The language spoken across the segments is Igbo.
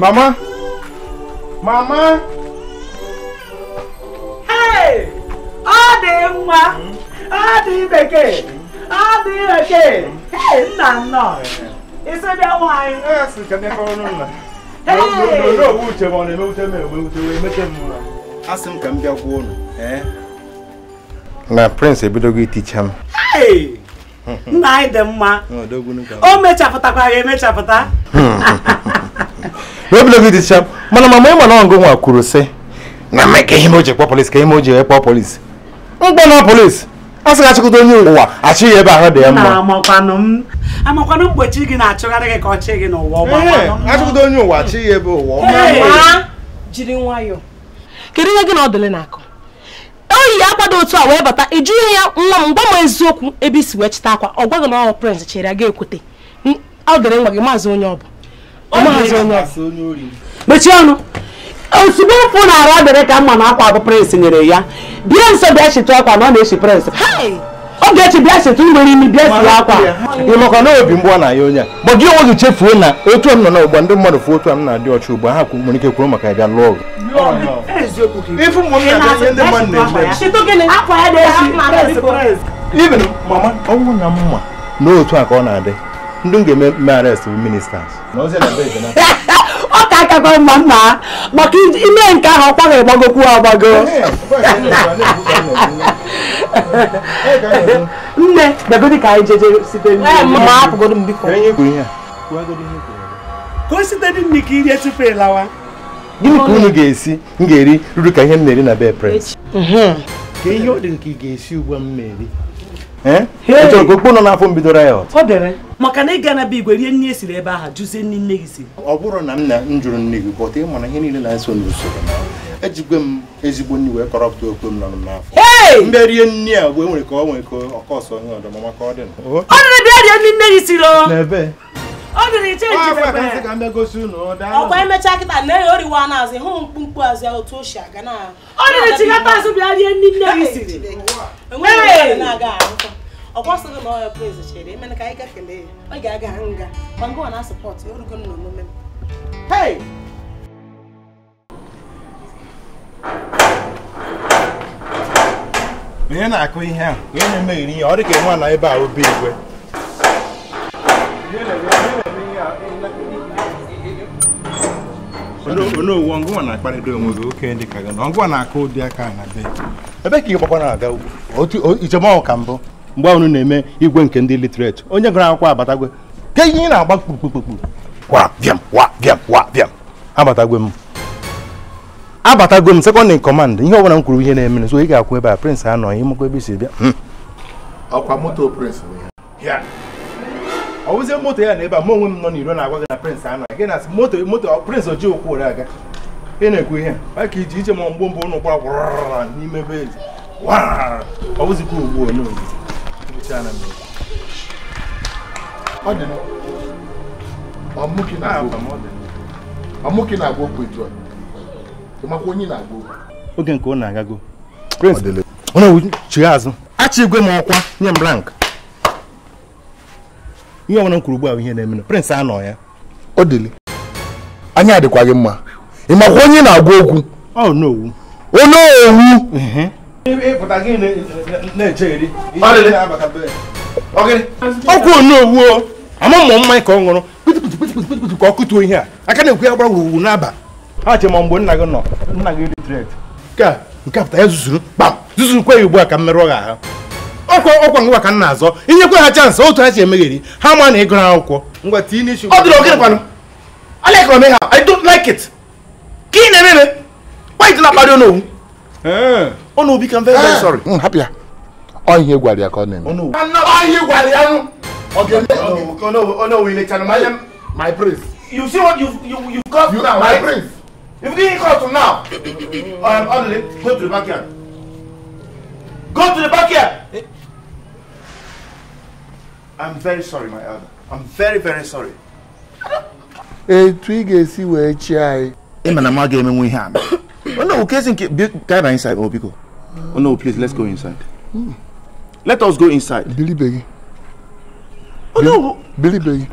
Mama? Mama? Hey! Ọ dị mma! Ọ dị bekee! Ọ dị bekee! Hey, nna nnọọ! Isi bịa nwaanyị! Ee, sị ka ndị kọrọ nna. N'oge owu uche ma ọ na-emewute m emewute wee mete m nwa. A sị m ka m bịa gwuo unu. Na Prince ebidogo iticha m. Hey! Nna anyị dị mma! O mechapụtakwara emechapụta. wee David Isham mana mama ịma na o nwa kwuru sị na mme ka ihe a oji ekpọ polisi ka a m Não ekpọ polisi mkpọ na polisi a sị achịkọta onye ụwa achị ya ebe ahụ dị ya mma amakwanụ mgbochi gị na-achụgharị gị ka ọ no gị n'ụwa achịkọta onye ụwa achị ya ebe ụwa jiri nwayọọ kedu ihe gị na ọ dịle n'akụ oyi ya akwado otu a wee bata ịjụ ihe ya nwa m gwa m eziokwu ebe isi wee chịta akwa ọ gwaghị na ọ prince chere ya ga-ekwute ọ dịrị nwa não maazị onye ọ mechie ọnụ ozugbo ụkwụ na-arụ adịrị ka mma na akwa abụ prensị nyere ya bịa nso bịa chịtụ akwa na ọ na-echi prensị ogechi bịa chịtụ nwere imi bịa siri akwa ịnọkọ na obi mgbe ọ na-aya onye a gị onwe gị chefuo na otu m nọ n'ụgbọ ndị mmadụ fụ otu a m na-adị ọcha ugbu ha nwere ike kwuru maka ya bịa lụọ ọgụ even mama ọ bụrụ na mma n'otu a ka ọ na-adị ndị m ga-eme mme arrest bụ ministers ọ ka akakwa mma mma maka ime nke ahụ ọkwa ga-agbagokwu agbago nne begodi ka anyị jeje gịnị ka unu ga-esi m ga-eri ruru ka ihe m na-eri na bed mhm. ka ihe ọ dị nke ị ga-esi ugbu a m na-eri Eh? ọ ka okpu nọ n'afọ m bidoro ya ọtọ. Ọ dere maka na ị ga na be igwe rie nri esiri ebe ahụ jụzie nne nne gị siri. Ọ bụrụ na m na m jụrụ nne gị bọta ịma na ihe niile na-eso n'usoro ejigwe m ezigbo nri wee kọrọpụta okpu m nọ n'afọ mbe rie nne a mgbe e nwere ka ọ nwere ka ọkọọsọ onye ọdọ maka ọ dị ọ dịrị bịa rie nri nne gị siri ọ ọkwa emechaa kịta na ya oriwa n'azụ hụ mkpumkpu azụ ya otu o si aga na ọ dịrị azụ bịa rie ndị nne gị siri enweghị na-aga ọkwa sịrị na ọya prez chere emena ka anyị gafele ya ọ ga-aga nga ma ngwa na sọpọt erugo na omume m onye na-akụ ihe a onye na-emeghiri ihe ọ nwa na ebe a obi igwe onowu ọngụwa na-akparịta onwe gị oke ndị ka gị na ọngụwa na-akụ ụdị aka na be ebe ka ị gbakwa na-aga ugwu ijem ọhụ ka mbụ mgbe unu na-eme igwe nke ndị literate onye gụrụ akwụkwọ abatagwe ke ihe ị na-agba kpukpukpukpu wa bịam wa bịam wa bịam abatagwe m abatagwe m sekọndị kọmand ihe ọbụla m kwuru ihe na-emere so ị ga-akwụ ebe a prịnsị anọghị ịmakwa ebe isi bịa hmm. ọkwa moto prịnsị bụ ya ọwụzie moto ya na ebe a mụ onwe m nọ n'iro na-agwa na prịnsị anọ gị na moto moto prịnsị oji okwu ụra aga ị na-ekwu ihe maka iji iche ma mgbe mbụ ụnụ kwara gwara n'ime ebe ezi ọwụzikwa ugbu onye oge na-agwa okwu onye na-agwọ okwu. oge nke ọ na-agago prịnsị chigha azụ achị igwe m ọkwa nye m rank ihe ọbụla m kwuru ugbu a ihe na-eme prịnsị anọ ya ọ dịlị anya adịkwa gị mma ị makwa onye na-agwa okwu onye owu ọkwa onowu ama mmụ mmanya ka ọ ṅụrụ kpitipitipitipiti ka ọ kụtuo ihe a aka na-ekwu ya gbara wuruwu n'aba ha che ma mgbe nna gị nọ nna gị dị tret nke a nke a apụta ya zuzuru kpam zuzuru kwe ya ugbu a ka mmerụ merụọ gị ahụ ọkwa ọkwa ngwa ka m na-azọ inyekwe ha chansị otu ha si emegheri ha ma na ịgụrụ akwụkwọ i don't like it ka ị na-ememe kpaịtị na-akparị ọnụ ọnụ obi ka m very very eh. sorry mm, hapụ ya ọhịa gwara ya ka ọ na-eme ọhịa gwara ya ọnụ owu ilechara m anya my prince you see what you you you got now my prince if you didn't cut now um, only go to the backyard go to the backyard I'm very sorry, my elder. I'm very, very sorry. Etu ị ga-esi wee chi anyị. Ị ma na m agaghị emenwe ihe a. Oh, no, Kezi nke guide anyị inside, oh biko. Oh no, please, let's go inside. Let us go inside. Bilibegi. Oh no. Bilibegi.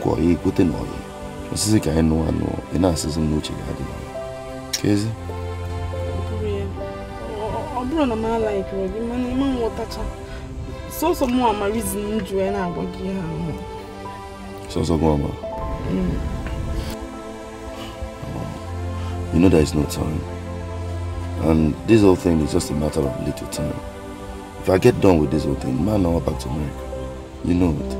cuori, cute noi. Non si sa che è non hanno, so, so, si sono luce che ha Che si? Ọbụrụ na m alaikere gị mana ịma nghọtacha sọsọ mụ ama rizin m ji wee na-agwa gị ihe so, so, mụ ama mm. You know there is no time. And this whole thing is just a matter of little time. If I get done with this whole thing, man, I'll back to America. You know it.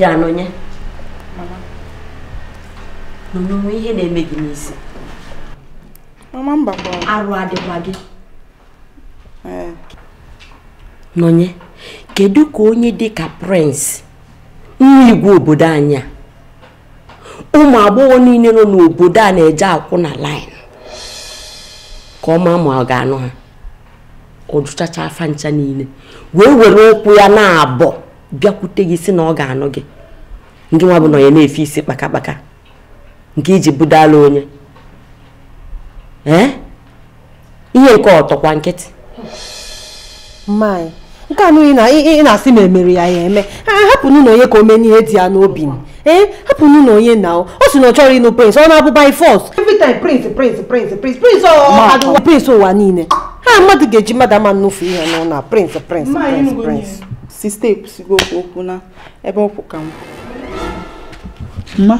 bịa n'onye n'onwe ihe na-eme gị n'isi arụ adịkwa gị kedụ kedu ka onye dị ka prince nwa igwe obodo anyị a ụmụ agbọghọ niile nọ n'obodo a na-eje akwụ na line ka ọma ma ọ ga-anụ ha ọ afa ncha niile wee were ụkwụ ya na-abọ bịakwute gị si na ọ ga-anụ gị ndị nwa bụ na onye na-efe isi kpakakpaka nke iji budala onye ihe nke ọtọkwa nkịtị mmanyị nke anụghị na ị na-asị ma emere ya ya eme hapụ na onye ka o mee ihe dị ya n'obi ee hapụnụ na onye na o si na ọ chọrọ ịnụ prince ọ na prince ụwa niile ha mmadụ ga-eji mmadụ ama nnụfu ihe n'ụlọ sista ekwusigo okwu okwu na ebe ọkwụ ka m mma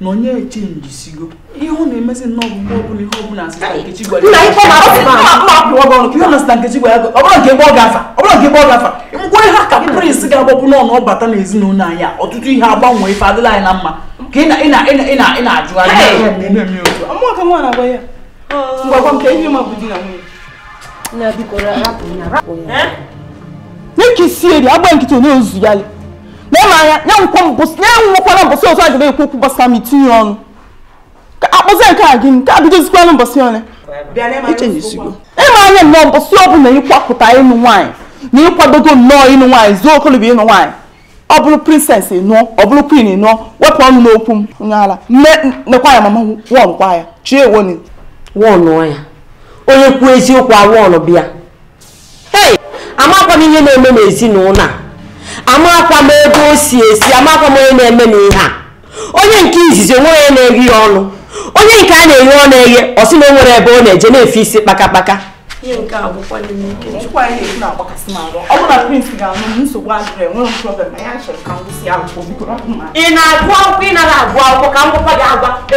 na onye sigo. ihe ọ na-emezi nnọọ bụ ọbụla ihe ọbụla asịsa nkechi gwara nna na ngwa ihe a ka prins ga-agbapụ n'ọnụ ọ n'ezinụlọ anyị a ọtụtụ ihe agbanwe na mma ka nke si eri agba nkịtị onye ozu ya le na-eme anya ya nwụkwala mbọsị otu a ga na-ekwu okwu gbasara m itinye ọnụ ka akpọzie nke a gị nke a bidozikwanụ mbọsị ọnụ ịma anya nnọọ mbọsị ọ bụla ịkwapụta ịnụ nwaanyị na ịkwadogo nnọọ ịnụ nwaanyị zuo okolobia ịnụ nwaanyị ọ bụrụ princess ịnụọ ọ queen ịnụọ wepụ ọnụ n'okwu m nyaala nekwa ya mama wọnụ kwa ya chi ewoni wọnụ ya onye kwuo eziokwu awọnụ bịa amakwa m ihe na-eme n'ezinụlọ a amakwa m ebe o si esi amakwa m onye na-eme n'ihe a onye nke izizi onwe onye na-eghe ya ọnụ onye nke a na-eghe ọ na-eghe ọsị na o nwere ebe ọ na-eje na-efe isi kpakakpaka e ị na-agụ akwụkwọ ị nara agụ akwụkwọ ka m gwakwa gị agwa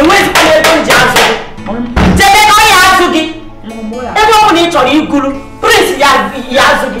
enweghịzikwa ebe m ji azụ gị jebe ka ọ ya azụ gị ebe ọ bụla ị chọrọ iguru prince ya azụ gị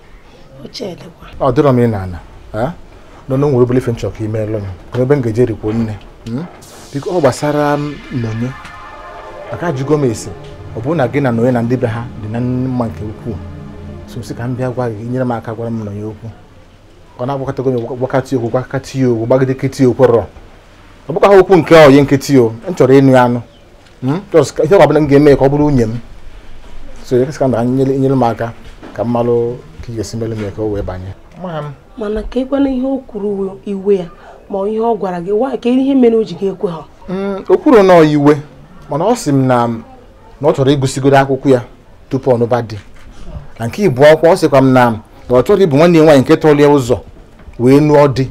ọ dịrọ m ị na-ana nọ na nwere obere ife nchọka imeelụ m n'ebe m ga-eje nne hmm? biko oh, ọ gbasara nnonye mm, maka ajụgo m esi ọ bụrụ na gị na nnonye na ndị be ha dị na mma nke ukwuu so si ka m bịa gwa gị nyere m aka gwara m nnonye okwu ọ na-agbakọtago m gwakatị okwu gwakatị okwu gbagide nkịtị okwerọ ọ bụkwa okwu nke onye nkịtị o m chọrọ ịnụ anụ ihe ọ bụla m ga-eme ka ọ bụrụ nwunye m so ka nyere m aka ka m malụ ka ị ga-esi mele ka o wee banye mana ka ịkwana ihe o kwuru iwe ya ma ihe ọ gwara gị nwaanyị ka ihe mere o ji gị ekwe ha mm, o kwuru na iwe mana ọ sị m na na ọ chọrọ ịgụsigodo akwụkwọ ya tupu ọnụba di na nke ịbụ akwụkwọ ọ sịkwa m na na ọ chọrọ ịbụ nwanne ya nwaanyị nke tọlie ụzọ wee nụọ dị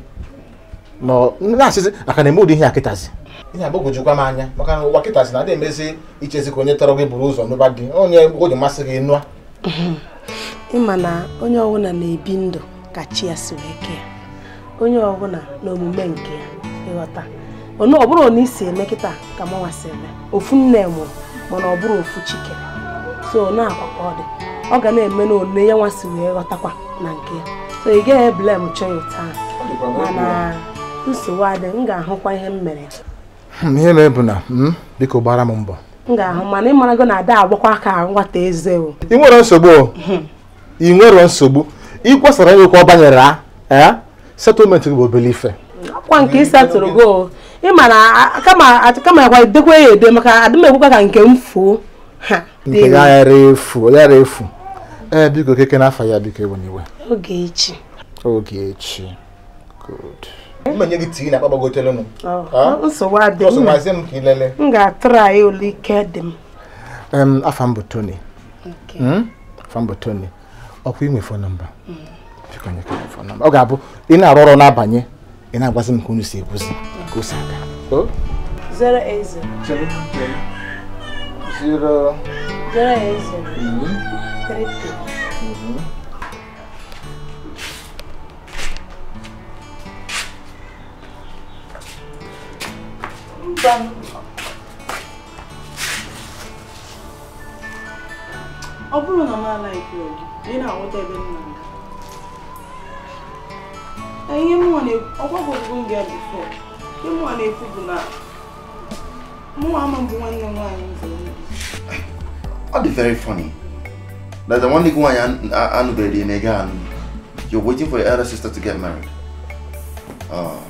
na-asịsị aka na eme ụdị ihe ya kịtazi ihe agbagwojukwa m anya maka na ụwa kịtazi na-adị emezi ichezi ka onye tọrọ gị buru ụzọ n'ụba gị onye o ji masị gị nụa ịma na onye ọbụla na-ebi ndụ ka chi ya si wee kee onye ọbụla na omume nke ya ịghọta ọ bụrụ na isi eme kịta ka m nwasị eme ofu nne mụrụ mana ọ bụrụ ofu chike so na-akwa ka ọ dị ọ ga na-eme na one ya nwasị wee ghọtakwa na nke ya so ị gaghị eblem chọọ taa mana nsogbu adị m ga-ahụkwa ihe m mere hmm, ihe mere bụ na hmm, biko gbara m mbọ m ga-ahụ mana ịmarago na ada agbakwa ka nwata eze o ị nwere nsogbu hmm. ị nwere nsogbu ịkwasara nyekwa ọ banyere a setụlmentị gị bụ obele ife ọkwa nke setụrụ go ịma na kama akwa edekwa ya ede maka adịm ekwekwa ka nke m fuo nke ya yara efu yara efu ee biko keke n'afọ ya biko ewe n'iwe ogechi ogechi good ma nye gị tii na akpa oh, nsogbu adịghị ọsọmazie m ka ị m ga-atụrụ ole ike dị m afa m Tony hmm? Tony ọkwa inwe fon mba hmm. ọ ga-abụ ị na-arụ ọrụ na-abanye ị na-agwazi m ka unu si ka o si aga Then ọ bụrụ na m alaiki ogi ị na ebe nna na ihe ọgbagogo m bịa bifọ ihe na-ekwu na mụnwa ama nwanne very funny that nwanne gị nwaanyị na anụ you're waiting for your elder to get married. Oh.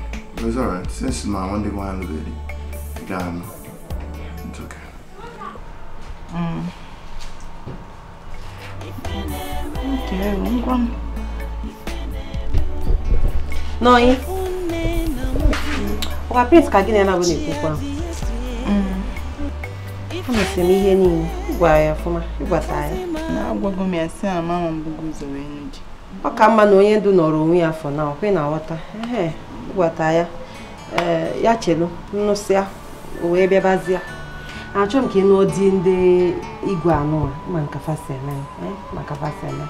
It was alright. Since my one day one baby, got guy, it's okay. Mm. Okay, one one. No, eh? Wa prince ka gịnị mm. na gịnị kwukwa? Mm. Ama sị m ihe niile gwara ya ọfụma, ịgwata to Na-agwago m ya sị na mama m bụgo I'm going to Ọ ka mma na onye ndu nọrọ onwe ya afọ na ọkwe na nghọta. Ehe. wata ya eh, ya chenu nnụsịa wee bịabazịa achọ m ka ị nụọ di ndị igwe ma nka fasi eme eh, maka fasi eme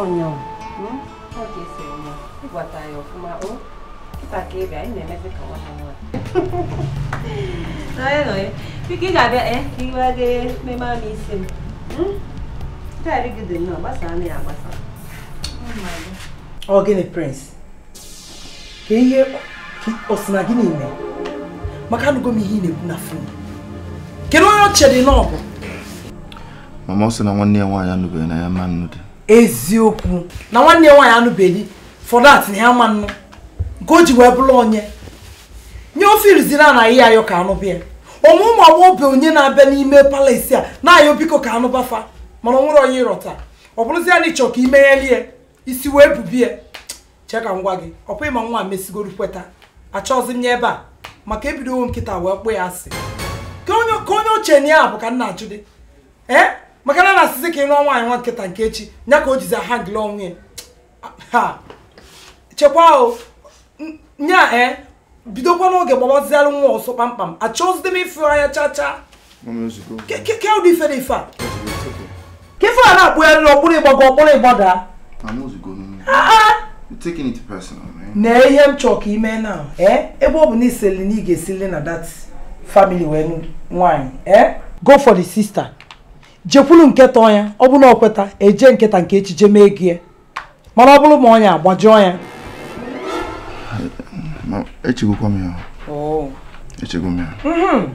onyanwụ hmm? ịgwata ya ọfụma o kịta ka ịbịa ị na ka nwa hmm? na ya ọ gịnị prince ka ihe ọsị na gị niile maka anụgo m ihe ị na-ekwu na fon kedu onye ọ dị na mama ọ sị na nwanne ya nwaanyị anụbeghị na ya ma dị eziokwu na nwanne ya nwaanyị anụbeghị fọdụ atị na ya ma nke o ji wee bụrụ onye nye ofe iriziri a na ihe ayọ ka anụ bịa ọmụ ụmụ agbọghọbịa onye na-abịa n'ime palasi a na-ayọ biko ka anụbafa mana ọ nwere onye ịrọta ọ bụrụzi ya na ịchọ ka imeghelie isi wee bubie chee ka m gwa gị ọkwa ịma nwa mesigoro kweta achọghịzi m nye ebe a maka ebidowo nkịta wee kpụ ya asị ka onye oche na ya bụ ka nna na-ajụ dị ee maka na na-asịzi ka ị nụọ nwaanyị nwa nkịta nke echi ya ka o jizi aha ngịla onwe ya ha chekwa o nya ee eh, bidokwa n'oge gbagbazialụ nwa ọsọ kpamkpam achọghịzi m ịfụ anya chacha ke ụdị ife na ife a ka ife a na-akpụ ya rịrị ọkpụrụ ịgbago ọkpụrụ ịgbada taking it personal man. na ihe m chọrọ ka ime na eh? ebe ọ bụ na iseli na ị ga-esili na that family wee nwanyị eh go for the sister jekwulu nke tọọ ya ọ na ọ eje nketa nke echiche mee gị eh? mana ọ bụrụ ma ọnya agbajuo ya echegokwa m ya oh. echego m ya mm-hmm.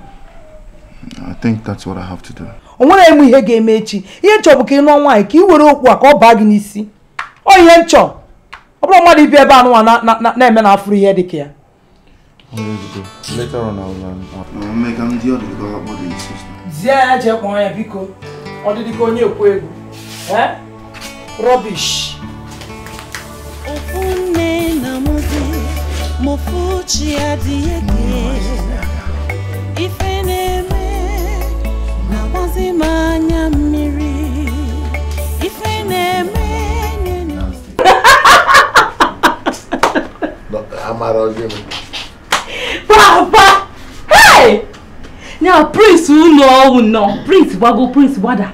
I think that's what I have to do. o nwere enwe ihe ga-eme echi ihe nchọ bụ ka ị nụọ nwaanyị ka ị were okwu a ka ọ baa gị n'isi o ihe nchọ ọbụrụ mmadụ ibi ebe a nụwa na-eme na afụrụ ihe dị ka ya zie eje kpọọ ya biko ọ dị dịka onye ekwu egwu rọbish na-eme na-agbazi m anya mmiri ife na-eme amara ọjọọ papa hey na prince ụlọ ọwụ nọ prince gbago prince gbada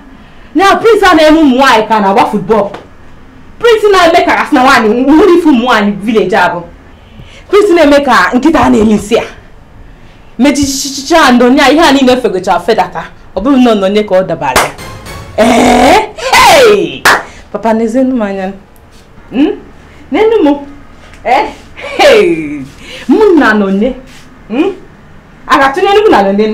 na prince a na-eme ụmụ ka na-agba football prince na-eme ka asị na nwanyị nwere ife ụmụ nwaanyị village abụ prince na-eme ka nkịta na-eli nsị a mechichichicha ndo nya ihe a niile fegocha fedata ọ bụrụ na nye ka ọ dabara ya ee eh? papa na-ezenu m anya hmm? n'enu m eh? mụ na nonye hmm? a ga-atụnye nnukwu na nonye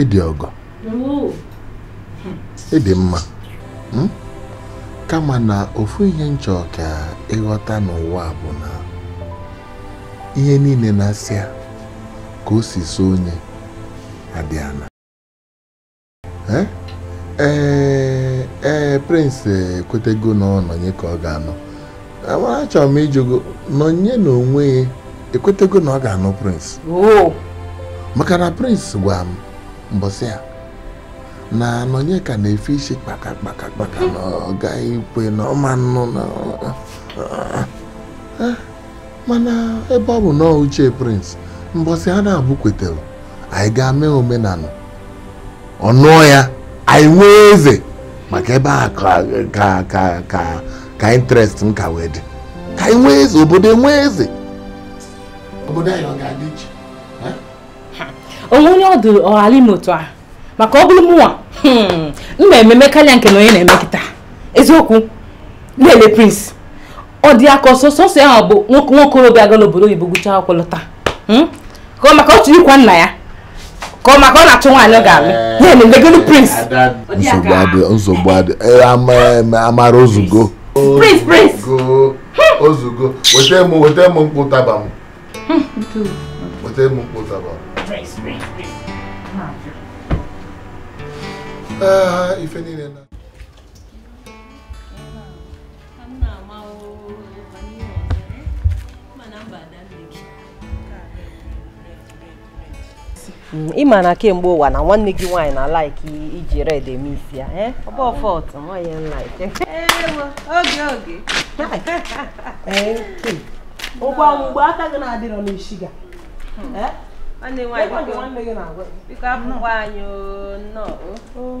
ịdị ọgọ ịdị mma hmm? kama na ofu ihe m ka ịghọta n'ụwa bụ na ihe niile na asị a ka o si so onye adịana eh? ee eh, ee eh, prince ekwetego na ọnọnye ka ọ ga-anọ amara eh, achọrọ m ịjụgo nọnye na onwe ya ekwetego na ọ ga-anọ prince maka na prince gwa m mbọsị ya na nọnye ka na-efe isi kpaka kpaka kpaka na ọ gaghị ikwe na ọma nnụ na mana ebe ọ bụ na uche prince mbọsị ha na-abụ kwetere anyị ga-eme omenala ọnụọ ya anyị nwee eze maka ebe a ka ka ka ka interest m ka wee dị ka anyị nwee eze obodo enwee eze obodo anyị ọ ga-adị iche onwe onye ọdụ ọghara ime otu a maka ọ bụrụ mụnwa m na hmm, nke na onye na emekịta eziokwu lele prince ọ dị aka ọsọ sọsọ ahụ bụ nwokorobịa aga n'obodo oyibo gụchaa akwụkwọ lọta hmm? maka ọ chụrụ ịkwa nna ya koma kona tunga anogami ye ni ndegulu prince nsogbade nsogbade amara ozugo prince prince ozugo wete mu wete mu mkpu taba mu wete mu mkpu taba mu ife niile na Mm, ị ma na kemgbe ụwa na nwanne gị nwaanyị na laik iji red eme isi ya eh? ngwa eh, mgbe aka gị na-adịrọ n'isi hmm. eh? gị na nwaanyị biko abụkwa anyị oh, nnọọ oh.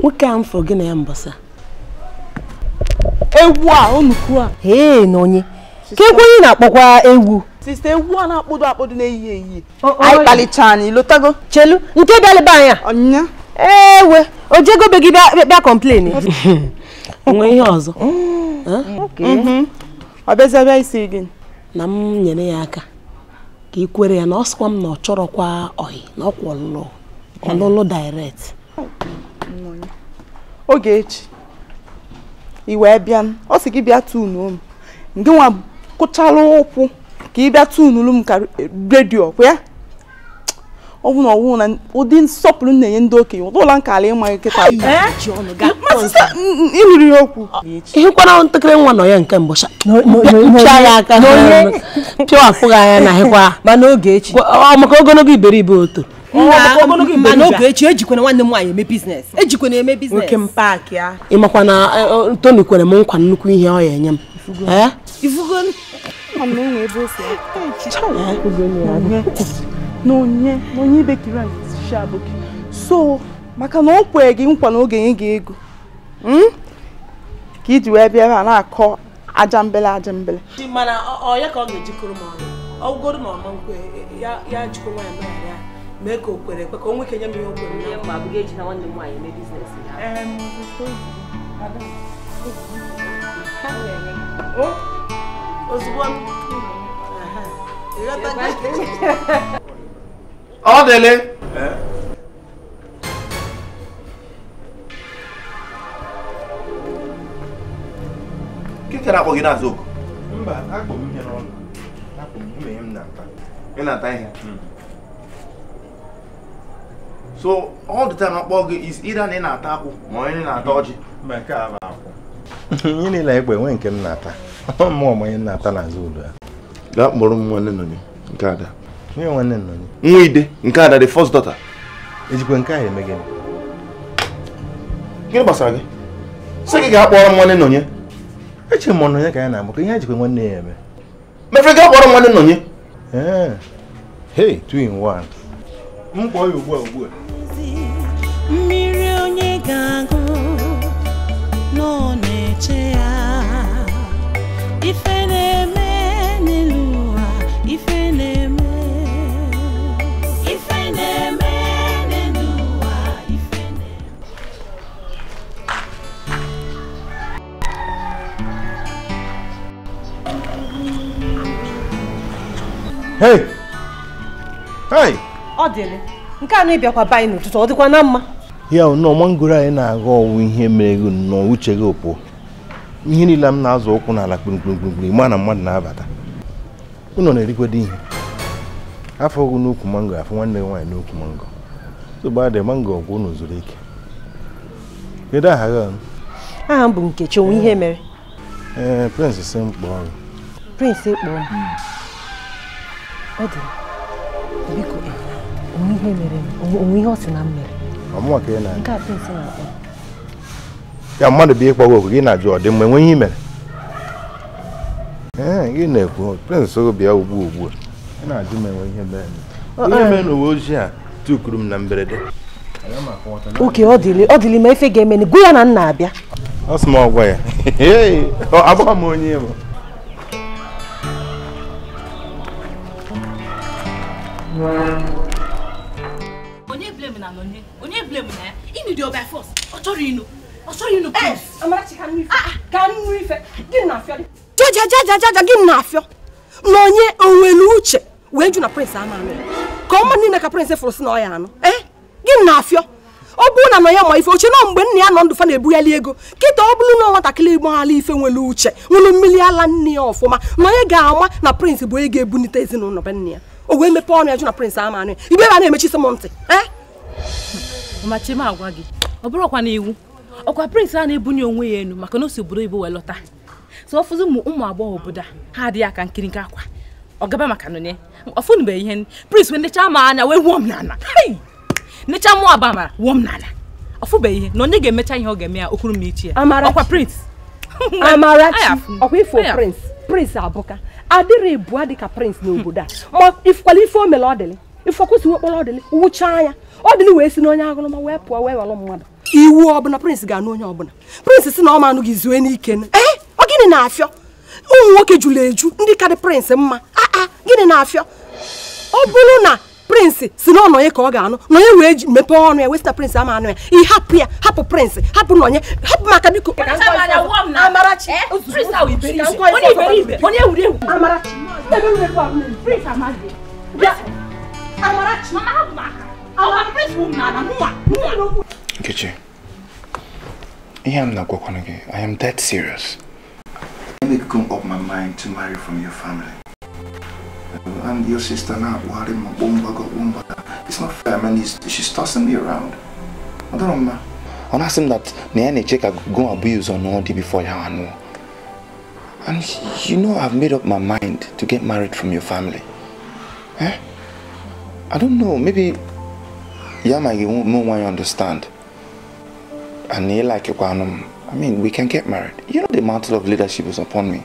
nwoke a m gị na ya mbọsa ewu a onukwu a ee na onye ka na-akpọkwa ewu. sista ewu a na-akpọdo akpọdo na-eyi eyi anyị kpalicha anyị lotago chelu nke bịalịba anya ewe ojego be gị bịa kọmplen nwe ihe ọzọ ọ bịazịabịa isi gị na m nyere ya aka ka ị kwere ya na ọ sịkwa m na ọ chọrọkwa ọhị na ọkwa ọlụlụ hmm. ọlụlụ direct oge echi ị wee bịa ọ sị gị bịa tunuo m ndị nwa kụchala ụkwụ ka ị bịa tunuru m ka redio kwa ya ọ na ọwụ na ụdị nsọpụrụ na-enye ndị okenye ụdị ụla nkala ya okwu ịhụkwara ntakịrị nwa nọ ya nke pịa ya aka pịa anya na hịkwa maka ogologo iberibe oto mana oge echi ejikwana nwanne m nwaanyị eme biznes ejikwana eme biznes ịmakwa na e, e, toni kwere m nkwa nnukwu ihe ọ ya enye m so maka na ọ kwere gị nkwa n'oge ị ga ego hmm? ka iji wee bịa ebe a na-akọ aja mbele aja mbele ọ ya ka ọ ga-ejikọrọ m ọnụ ọ ọma nkwe ya jikọ nwaanyị ya mee ka o kwere ekwe ka o nweke nye m ihe o abụghị eji na nwanne m nwaanyị mee oh, ozugbo e ọ dịle nkịta akpọ gị n'azụ oku mba akpọ m ihe n'ọnụ akpọ m nwunye m na ị ihe hmm. so all the time akpọ gị is either na ị na-ata akwụ ma onye na-ata ọjị ihe niile egbe nwee nke m na-ata mmụọ ọmụ onye na-ata n'azụ ụlọ ya gaa kpọrọ m nwanne nọ nke ada onye nwanne nọ nwa ide nke ada the first daughter ejikwa nke a eme gịnị gịnị gbasara gị sị gị gaa kpọrọ m nwanne nọnye echere m ọnọnye ka ya na-amụ ka ihe ejikwa nwanne ya eme mefere gaa kpọrọ m nwanne nọnye ee two in one m ya ugbu a ugbu a mmiri onye ga-agụ nọ na-eche ya ife na-eme n'elu ụwa ife na-eme ife na-eme n'elu ụwa ife na-eme hey hey ọ dịrị nke a na-ebịakwa be n'ụtụtụ ọ dịkwa na mma ya nọ mangoro anyị na-aga ọwụ ihe mere gị nnọọ uche gị opụọ ihe niile m na-azụ ụkwụ n'ala kpirikpirikpirikpiri ma na mmadụ na-abata ụnọ na-erikwado ihe afọ ụgụ n'ukwu mango afọ nwanne gị nwaanyị n'ukwu mango tụgbadị mango ọgwụ ụnụ zuru ike kedu aha gị aha m bụ Nkechi onwe ihe mere ee prịnsị si m kpọọ gị prịnsị kpọọ ọ dị onwe ihe mere onwe ihe ọ sị na m mere nke a pịnsị na-akpọ ya mmadụ bụ ịkpọ gị gị na-ajụ ọ dị mma enwe ihe i mere ee gị na-ekwu prịnsị bịa ugbu ugbu a na-ajụ m enwe ihe mere ihe mere n'uwe ojii a tukuru m na mberede oke ọ dịrị ma efe ga-eme gwa ya na nna abịa ọ sị m ọgwa ya agbaghị m onye bụ Thank problem na ya imidio by force ọ chọrọ inu ọ chọrọ inu jajajajaja gị na afịọ na onye onwere uche wee ju na prince ama amị ka ọma niile ka prince fụrụ si na ọ ya anụ ee eh, gị na afịọ ọ bụrụ na nọ ya ma ife oche na mgbe nna ya nọ ndụ fa na-ebughali ego kịta ọ bụrụ na nwatakịrị igbo ala ife nwere uche nwere mmiri ala nne ya ọfụma na onye ga-ama na prince bụ onye ga-ebunite ezinụlọ be nne ya o wee mepee ọnụ ya jụ na prince ama anụ ya igbe a na-emechi sị m ntị ee eh? mama chima agwa gị ọ bụrụkwa na iwu ọkwa prịnsị a na-ebunye onwe ya elu maka na o si obodo ibo wee lọta so ọfụzi ụmụ ụmụ agbọghọ obodo ha adịghị aka nkiri nke akwa ọ gaba maka nụnye ọfụnụbeghị ihe prịnsị wee nechaa m anya wee wuo m n'ala nechaa mụ aba amara wuo m n'ala ọfụbeghị ihe na onye ga-emecha ihe ọ ga-eme ya okuru m ichi ya ọkwa prịnsị amarachi ọkwa ifo prịnsị prịnsị abụka adịrị bụa dịka prịnsị n'obodo a ma ifukwala ife o mere ọ dịlị ife ọkwụsị ọ dịlị wụchaa ya ọ dị na wee si n'onye aṅụrụma wee pụọ wee walụ mmadụ iwu ọbụla prince ga-anụ onye ọbụla prince si na ọ ma anụghị zue n'ike ee eh, ọ gịnị na-afịọ ụmụ nwoke jụrụ eju ndị karị prince mma aa ah, ah, gịnị na-afịọ ọ bụrụ na prince si na ọnọnye ka ọ ga-anụ nọnye wee ji mepee ọnụ ya wee sị na prince ama anụ ya ị hapụ ya hapụ prince hapụ nọnye hapụ maka biko Amarachi Amarachi eh, Nkechi, I am not going gị, I am that serious. I make come up my mind to marry from your family. And your sister now, worry my bomba got bomba. It's not fair, man. she's tossing me around. I don't know, And I asked him that na check I go abuse on all before you know. And you know I've made up my mind to get married from your family. Eh? I don't know, maybe know why you understand and ịlikekwanụ I mean, we can get married. You know, the mantle of leadership is upon me.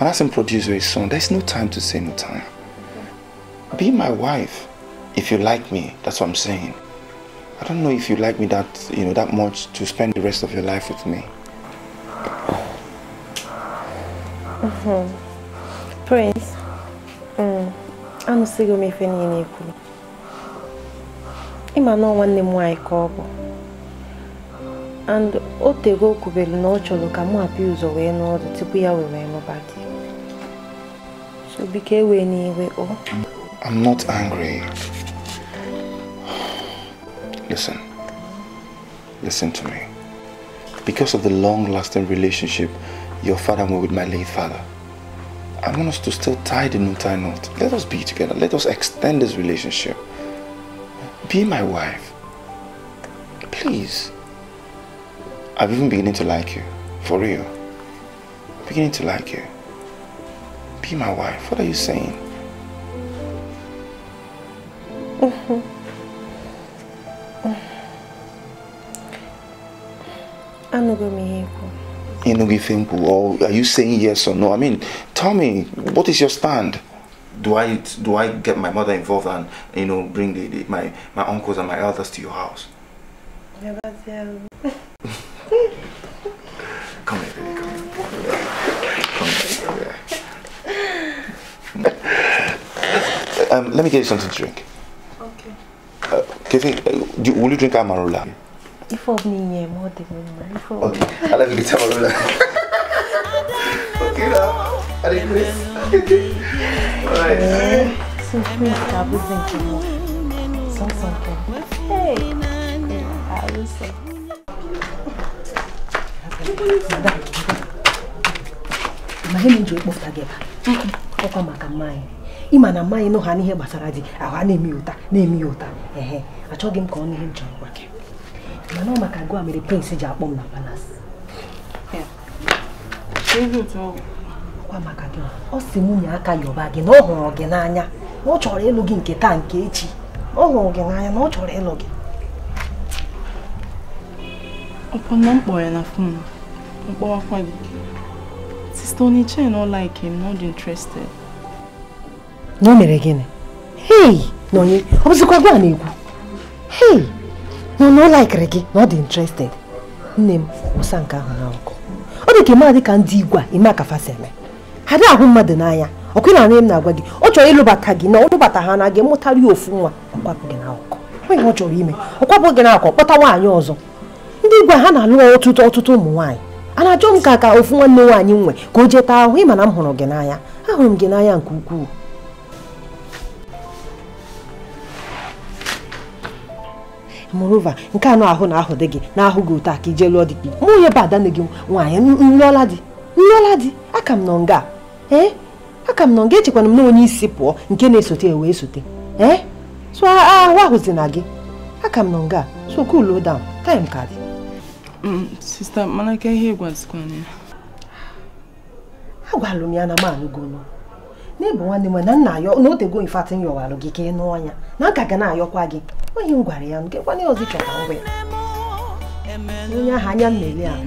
And as I'm producer his son, there's no time to say no time. Be my wife if you like me. That's what I'm saying. I don't know if you like me that, you know, that much to spend the rest of your life with me. Mm-hmm. Mm -hmm. Prince, I'm to me if any ịma na nwanne m nwaanyị ka ọ bụ and o tego o kwubelu na ọ chọrọ ka mụ hapụ ụzọ wee n'ọrụ tupu ya were nụba gị so biko n'iwe o I'm not angry. Listen. Listen to me. Because of the long-lasting relationship your father had with my late father, I want us to still tie the new tie knot. Let us be together. Let us extend this relationship. Be my wife. Please. I've even beginning to like you. For real. I'm beginning to like you. Be my wife. What are you saying? Mm -hmm. or are you saying yes or no? I mean, tell me, what is your stand? do I do I get my mother involved and you know bring the, the, my my uncles and my elders to your house? Never tell. come here, baby, come here. Come here, come here. Um, let me get you something to drink. Okay. Uh, uh, do, will you drink Amarula? If of me, yeah, more than one. Okay, I'll let you get Amarula. ọkwa maka mmanya ịma na mmanya nọ ha n'ihe gbasara di ahụ a na-eme ụta na-eme ụta ehe achọghị m ka ọ n'ihe m chọrọ gwa gị mana ọ maka gụa mere prince ji akpọ m na palas ọkwa maka gị ọ si nwunye aka yọba gị na ọ hụrụ gị n'anya na ọ chọrọ ịlụ gị nke taa nke echi ọ hụrụ gị n'anya na ọ chọrọ ịlụ gị ọkpọna mkpọ ya na fon mkpọwakwa gị sista oniche na ọla ike m dị interested na o mere gịnị hei na onye ọ bụzikwa gị a na-ekwu hei na ọ laikiri gị na ọ dị interested nne m wụsa nke ahụ na ọkụ ọ dị ka ịma dị ka ndị igwe a ime akafasi eme ha dị ahụ mmadụ n'anya ọkụ na m na-agwa gị ọ chọrọ ịlụbata gị na ọlụbata ha na gị mụtara ya ofu nwa ọkwapụ na n'akụkụ onye ọ chọrọ ime ọkwapụ gị n'akụkụ kpọta nwaanyị ọzọ ndị igwe ha na-alụ ọtụtụ ọtụtụ ụmụ nwaanyị a na-achọ m ka ka ofu nwanne nwaanyị nwe ka o jeta ahụ ịma na m hụrụ gị n'anya ahụrụ m gị n'anya nke ukwuu moreover nke anụ ahụ na ahụ dị gị na-ahụ gị ụta ka ije lụọ dị gị mụ onye bụ ada gị nwaanyị nlụọla dị nlụọla dị aka m nọ nga ee aka m nọ nga echekwana m na onye isi pụọ nke na-esote e wee sote ee so ahụ ahụzi na gị aka m nọ nga so cool down time ka dị mm, sista agwalụ m ya na m anụgono n'ebe nwanne m na nna ayọ na o tego gị ka ị nụ ọnya na aka na-ayọkwa gị onye m gwara ya nkekwana ya ọzọ chọta ngwa ya onye ahụ anya m ahụ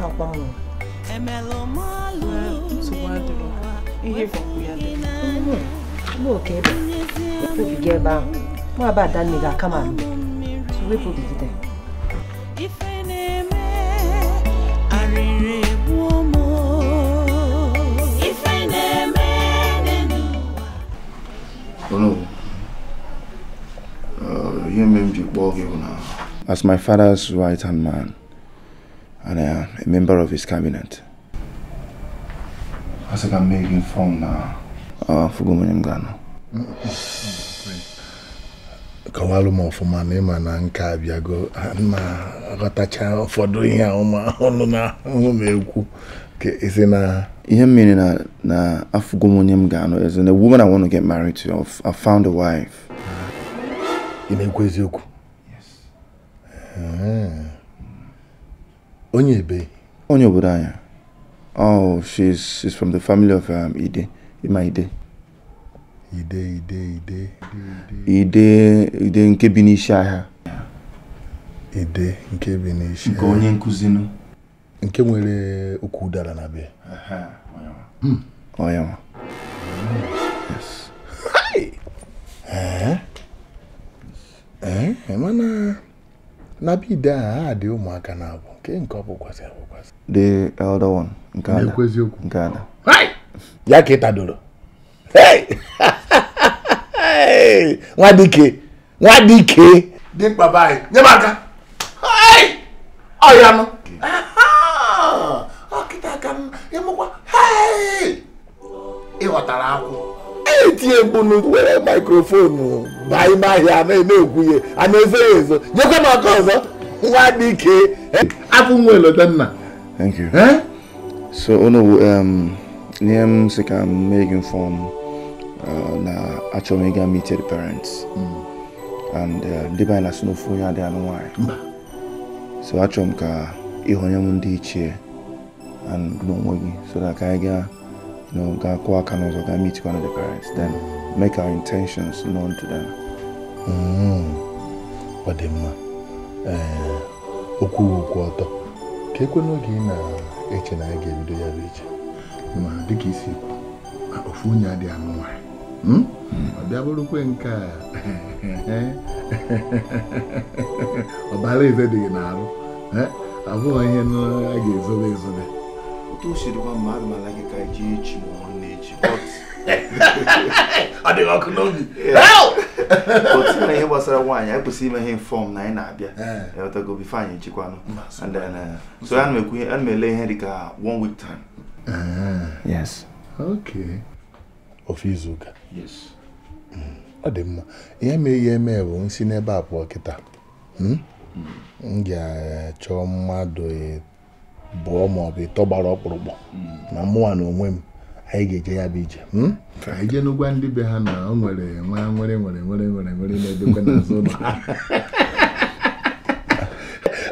takwa m n'oke ebe ebe ahụ nwa aba adanne ga-aka ma wepụbigide As my father's right-hand man, and I am a member of his cabinet. As I can make informed now. Uh, Fugumenyem Gano. kọwalụ m ọfụma na ịma na nke abịago na-aghọtacha ụfọdụ ihe ọma ọnụ na ahụ m ekwu ka isi na ihe mmiri na na afụgo m onye m ga-anụ eze na woman I want to get married to i found a wife. Ị na-ekwu eziokwu? Onye ebe? Onye obodo anya. Oh, she's she's from the family of um, Ide, Ima Ide. Ide, Ide, Ide. Ide, Ide nke bi n'isi ahịa. Ide nke bi n'isi ahịa. Nke onye nkuzi nụ. nke nwere okwu udara na be onye nwa hmm. eh? eh? mana na be ide ahụ ha dị ụmụaka na abụ nke nke ọ bụkwasị abụkwasị the elder one nke ada eziokwu nke ada ya ka ịtadoro nwa dike nwa dike dimkpa be anyị nye m aka ọya nụ ịmụkwa ịghọtara akwụ etinye mkpu were mikrofonu baa ime ahịa na-ekwu ihe a na-ezo ya ezo nyekwa m aka ọzọ nwa dị ike abụ nwa elodanna thank you so unu ihe um, m sị ka m mee gị mfọm uh, na achọ m ịga meet the parents hmm. and uh, ndị be na snofu onye adịghị anụ nwaanyị so achọrọ m ka ịhụ onye m ndị ichie n'onwe gị so that ka anyị gaa gaa kwụọ aka n'ụzọ gaa meet one of the parents then make our intentions known to them. ọ mm-hmm. dị mma eh, okwu okwu ọtọ ka ekwe n'oge ị na-eche na anyị ga-ebido ya bụ iche ma dịka isi ofu onye anụ nke a ọbara hmm? hmm. eze dị n'arụ eh? abụghị ihe a ga-ezobe ezobe otu o siri gwa mmadụ na gị ka jee echi ma ọ na-echi ọ dịghị ọkụ n'obi otu na ihe gbasara nwaanyị anyị kwesịrị ime ihe fọm na anyị na-abịa ewetago bife anyị echikwanụ so ana uh, m ele ihe dị one week time uh-huh. yes okay ofu izuụka yes mm. ọ dị mma ihe mere ihe eme bụ nsi n'ebe a pụọ kịta hmm? Hmm. m ga-achọ mmadụ bụọ ma ọ bụ ịtọ gbara ọkpụrụkpụ na hmm. mụnwa na onwe m anyị ga-eje ya bụ ije hmm? anyị jee ndị be ha na ọ nwere nwa nwere nwere nwere nwere nwere na-edekwe n'azụ ụlọ ha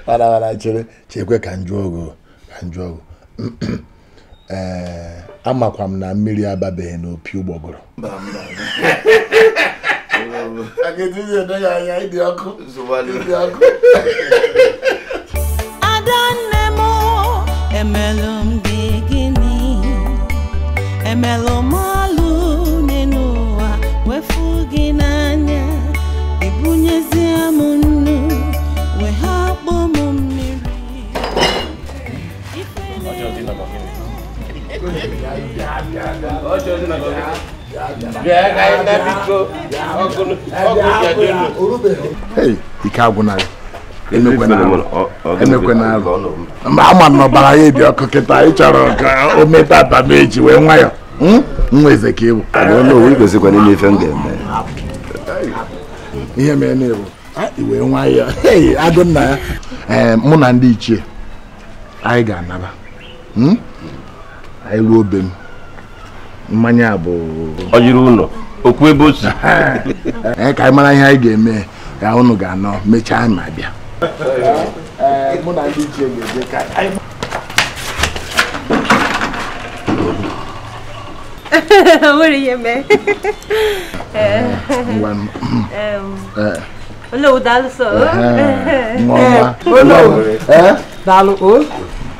warara chere chekwe ka njụ ogo ka njụ ogo ee amakwa m na mmiri ababeghị n'opi ụgbọgụrụ ọkụ. ọkụ. emelụ m gị gịnị emelụ m ọlụ n'ụwa wefu gị n'anya ibunyezie m nnu wee ha kpọ m mmiri Hey, ike agwụnaghị emekwana alụ mba ama na ọbara ya dị ọkụ kịta ị chọrọ ka o mete meta atameji wee nwayọ nweze ka ịbụ ihe mere na ịbụ iwe nwayọ adị nna ya ee eh, mụ na ndị ichie anyị ga-anaba anyị ruo obe m mmanya bụ ọjiri ụlọ okwu ebe o si eh, ka anyị mara ihe anyị ga-eme ya ụnụ ga-anọ mechaa ma bịa mụ na ndị ji egbe ka nwere ihe mee olówó dálú o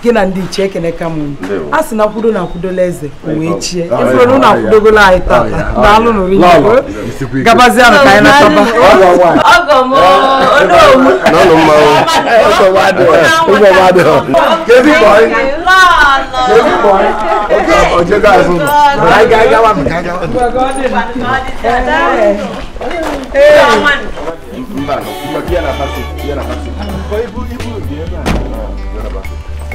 gị na ndị ichie ekeneka m a sị na kwudo na akwudola eze wee chie ifụrụ e ụlọ akwudogola anyị tata daalụ nụrụ igbo gabazie na ka anyị nataba Hey. Mbano, mbakia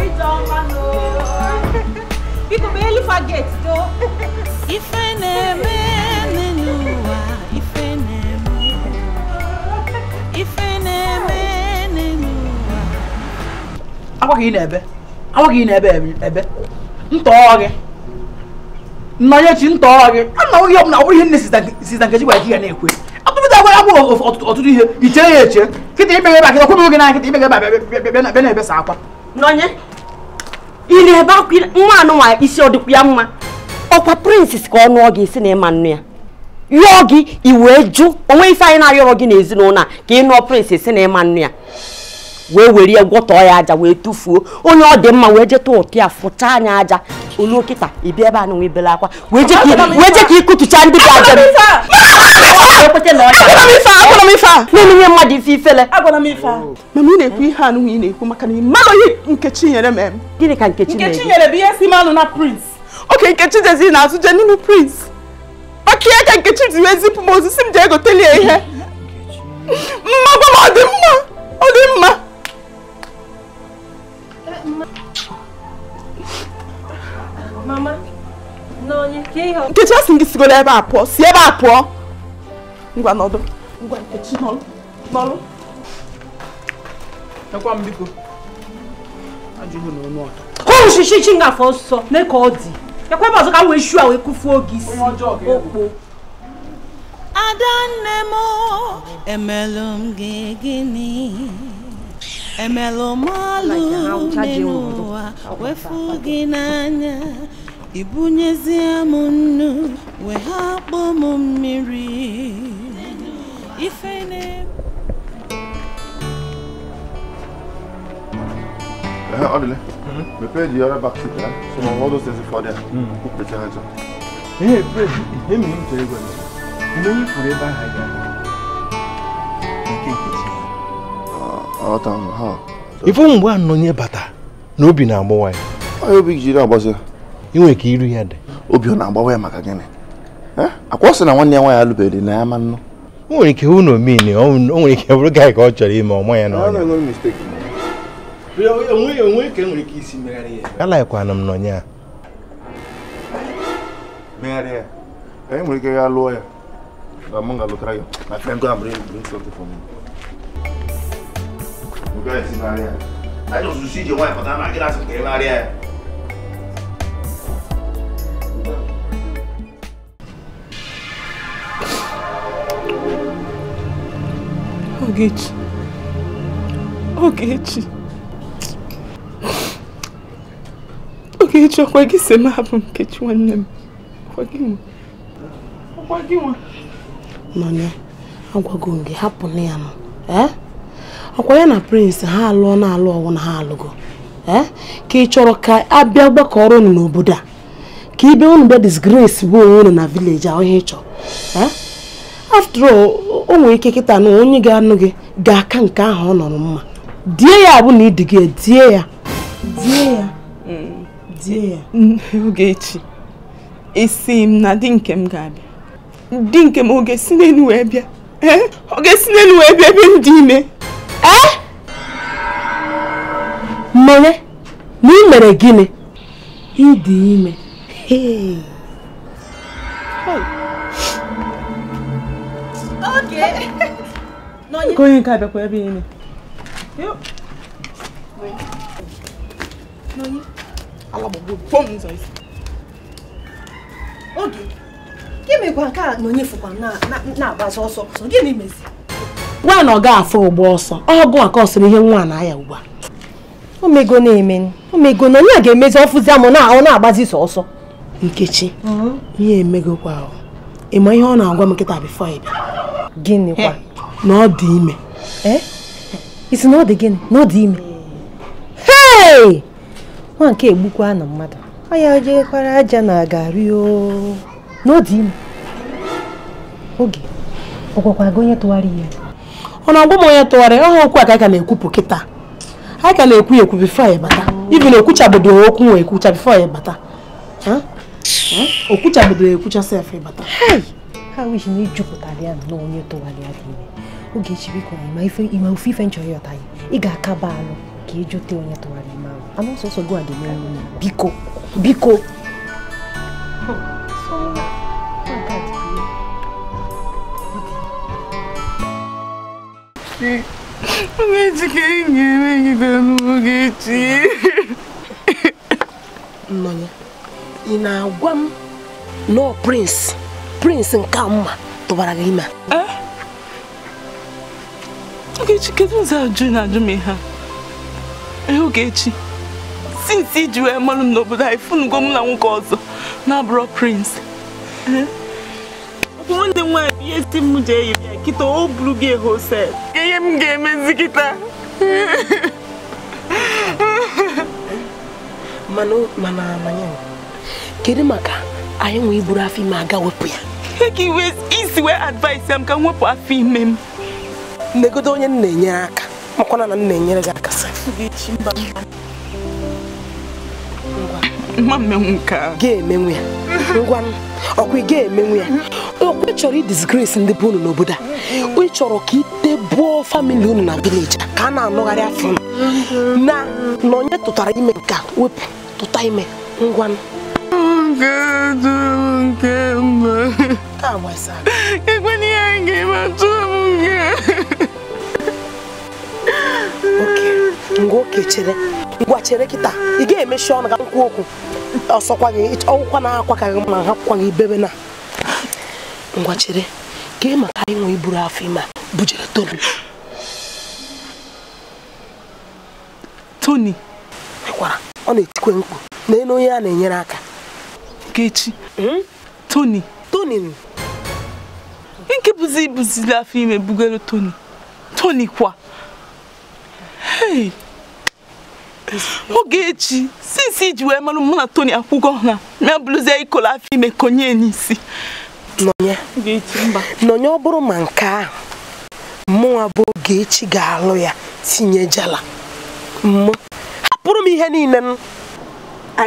síjọba lọ. Biko bẹ́ẹ̀ lè fa gate tó. if I never wa, ìfẹ́ nẹ̀mẹ́. Ìfẹ́ nẹ̀mẹ́ nínú wa. Agwaghị na-ebe, agwaghị na-ebe ebe, ntọọ gị. Nnọnye chi ntọọ gị, a na onye ọbụla ọ bụrụ ihe nne Sista Nkechi gwara gị ya na-ekwe. a ga agwụ ọtụtụ ihe iche ya eche kịta imeghe ebe akịta kwụrụ gị n'anya kịta imeghe ebe bịa na-ebesa akwa n'onye ị na-ebe akwa nwa anụnwa isi ọ ya mma ọkwa prinses ka ọ nụọ gị isi na ịma nnu ya yọọ gị iwee jụ onwe isi anyị na-arịọrọ gị n'ezinụlọ a ka ị nụọ si na ịma nnu ya wee were ya gwọtọọ ya aja wee tụfuo onye ọ dị mma wee jeta ụtụ ya fụcha anya aja olu okịta ịbịa ebe a na nwe akwa wee je ka ịkụtụcha ndị dị aja na-emenye mmadụ ife ifele mama ị na-ekwu ihe anụnwa ị na-ekwu maka na ị mara ihe nkechi nyere m gịnị ka nkechi nyere bụ ihe si manụ na prince oke nkechi jezi na-atụje n'ime prince maka ihe ka nkechi ji wee zipụ m osisi m ji egoteli ihe mma gwa m ọ dị mma ọ dị mma nkechi asị gị sigoro ebe a si ebe a pụọ ngwa adanne m emelụ gị gịnị Emelo malu nenu wa wefu n'anya ibunyezie m nnu wee m mmiri ife na-eme Ehe, Odile. Prepare the other back seat, eh? Mhm. So mm. all those things before there. Mm. Put the charger. Hey, pray. Hey, me, tell you ife mgbe a nọnye bata na obi na-agbawa ya obi inwe ka iru ya dị obi ọ na-agbawa ya maka gịnị akwa sị na nwanne ya nwaanyị alụbeghị na ya ma nnụ o nwere ike hụ na omeni o nwere ike bụrụ gaa ka ọ chọrọ ime ọma ya e alaghịkwana m n'ọnya a We're going to Maria. I just see your wife, but I'm not going to Maria. Ogechi. Ogechi. Ogechi ọkwa gị si m hapụ Nkechi nwanne m. Ọkwa gị nwa. Ọkwa gị nwa. Nọnye, agwago m gị hapụ na ya nọ. Eh? ọkwa ya na prince ha alụọ na alụ ọwụ na ha alụgo eh? ka ị chọrọ ka abịa gbakọrọ unu n'obodo a ka ibe unu bịa disgrace bụ onwe unu na vileji ahụ ihe ị chọrọ eh? after all o ike kịta na onye ga-anụ gị ga-aka nke ahụ ọ nọrọ mma die ya abụ na ịdị gị die ya die ya die ya m na di nke m ga-abịa di nke m ọ ga-esi n'elu wee bịa eh? n'elu wee bịa ebe m dị ime ee eh? mmanya na ị mere gịnị ịdị ime nke onye nke a abịakwa ebe ime oge gị mekwa nke a na onye fụkwa na-agbazi ọsọ gịnị mezi nwa na ọ ga afọ ụgbọ ọsọ ọgụ ka ọ sịrị ihe nwa na ya ugbu a omego na-eme omego na onye a ga-emezi ọfụzi amụ na ọ na-agbazi sọ ọsọ nkechi mm-hmm. ihe emegokwa ịma ihe ọ na-agwa m nkịta bifọ ịbịa gịnị kwa na ọ dị ime isi e? na ọ dị gịnị na ọ dị ime hei nwa nke egbukwa na mmadụ anya jekwara aja na agari o na ọ dị ime oge ọ gị onye tụwara ihe ọna ọgwụ m onye tụgharị ọha okwu a ka anyị ka na-ekwupụ kịta anyị ka na-ekwu ekwu bifo anyị bata ibi na ekwuchabedo okwu nwe ekwucha bifo anyị bata okwuchabedo ekwucha sef bata ha wishi na ijupụtara ya na onye tụgharị ya ime oge echi biko ịma ofe ife nchọrọ ịghọta ya ị ga-akaba alụ ka ịjụta e onye tụgharị ime ahụ anụ sọsọ gị a ga-enyere biko biko hmm. foguete. Foguete quem é tá no foguete. Mãe, e na guam, no prince, prince calma, tubaragima. É? Foguete que é não sabe de nada mesmo. É foguete. Since é? Sim, wee mara m n'obodo anyị fụnugo é m na nwoke ọzọ na-abụrọ prins nwanne m nwaanyị ihe si m ji eyi bịa kịta o buru gị hosel ihe m ga-emezi kịta kedu maka anyị nwe iburu afọ ime aga wepụ ya isi wee advice ya ka wepụ afọ ime m negodo onye m na-enyere aka makwana na m na-enyere gị aka mma mmenwu nke ga-emenwu ya ngwa ọkwa ị ga-emenwu ya okwe chọrọ disgrace ndị bụ unu n'obodo a ị chọrọ ka itebuo famili unu na vileji ka a na-anụgharị afọ na na onye tụtara ime nke a wepụ tụta ime ngwa Okay. ngwa oke chere ngwa chere kịta ị ga-emechi ọnụ ka nkwu okwu ọsọkwa gị ọgwụkwa na akwa ka gị ma hapụkwa gị bebe na ngwa chere ka ị maka inwe iburu afọ ime a bujere Tony Tony kwara, ọ na-etikwe mkpu na elu onye a na-enyere aka Nkechi hmm? Tony Tony nke buzi buzi afọ ime bugoro Tony Tony kwa hey oge echi sinsi iji wee marụ mụ na Tony Akwụkwọ na ya bụrụzie ikolo afọ ime konye n'isi nọnye ọ bụrụ ma nke ahụ mụnwa bụ Ogechi ga-alụ ya tinyejala mụ hapụrụ m ihe niile m,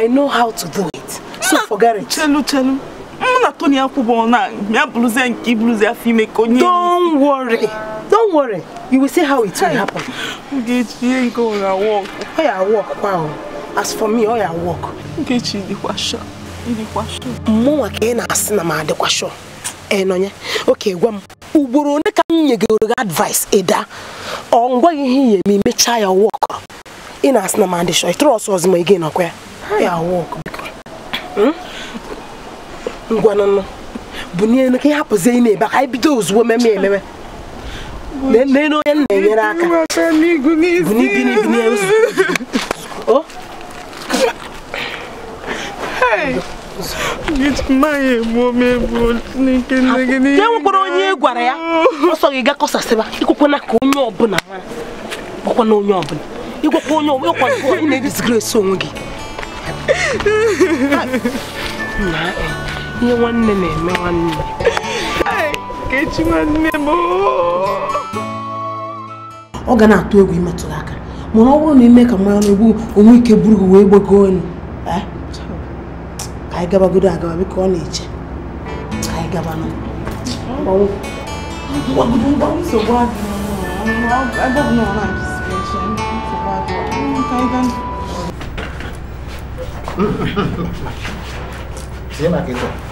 I know how to do it so forget it chelu chelu mụ na Tony akwụbọ na ya bụrụzie nke ibụrụzi afọ ime ka onye don't worry don't worry you will see how it will happen Nkechi nke ọ ya work ọ ya work kwa as for me ọ ya work Nkechi dịkwa sure dịkwa sure mụnwa ka ị na-asị na m adịkwa sure enonye oke gwa m ugboro ole ka nye nyegoro gị advice ịda ọ ngwaghị ihe ihe ma imechaa ya wọk ị na-asị na m adịshọ trọs ọzọ ma again gị nọkwa ya ya wọk ngwanụnụ bụ n'elu ka ị ya ị na-ebe ka anyị bido ozugbo meme ememe onye nna enyere aka e nwekwara onye gwara ya ọsọ gị ga kọsasịba ịkwekwana ka onye ọbụla gwakwana onye ọbụla ịgwakwa onye ọbụla ị na-edisgresi onwe gị nye nwanne na-eme nwanne kechi nwanne m ọ ga na-atụ egwu ịmetụrụ aka mana ọ bụrụ na ime ka mmanya na-egbu onwe ike buru gị wee gbagoo elu ka anyị gabagodo agaba biko ọ na-eche ka anyị gaba nụ nsogbu adịghị 直接买给我。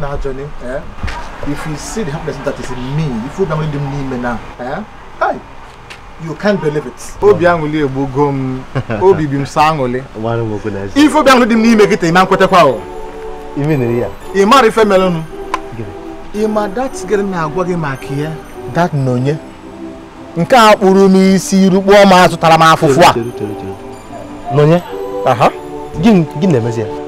Now, Johnny, eh? if you see the happiness that is in me, if you don't believe me now, eh? Hey, you can't believe it. Obi anwuli egbugo obi bi m sa anwuli. Mara m okwu n'ezi. Ife obi dị m n'ime gị taa ime nkwetekwa o. Ime niri ya. Ị mara ife mere nụ. Ị ma dat gịrị na-agwa gị maka ya? Dat na onye? Nke a kpụrụ m isi rukpuo m azụtara m afụfụ a. N'onye? na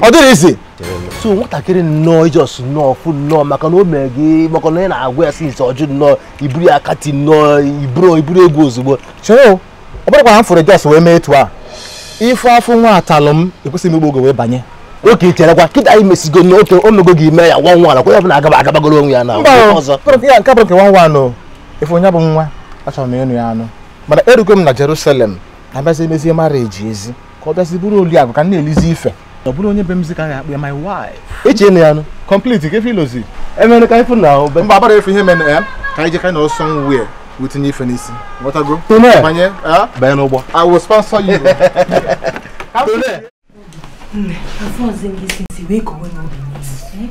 ọ dịghị isi so nwatakịrị nnọọ ijọs nnọọ fụ nnọọ maka na o mere gị na ị na-agwa ya sinsi ọjụ nnọọ iburu ya kati nnọọ iburu iburu egwu ozugbo cheo ọ bụrụkwa na mfụrụ fụrụ jos wee mee etu a ife afụ nwa atalụ m ekwesịghị m wee banye oke kịta anyị mesigo n'oke o mego gị ime ya nwa nwa ya bụ na agaba agabagoro ya na ya nke nke nwa nwa anụ efe onye bụ nwa achọrọ m ịnụ ya anụ mana erugo m na Jerusalem na abịazi emezie mara eji ka ọ bịazi bụrụ oli ka m na-elizi ife Não bụrụ onye be m minha my wife eche na ya nụ complete ka efe ilozi emere ka ifu na o mba agbara efe ihe mere ya eh? ka anyị jekara na ọsọ nwuwe wetinye ife n'isi ghọtago banye eh? banye n'ụgbọ i will sponsor you Eu afọ ọzọ gị si nsi wee kowe n'obi n'isi eh?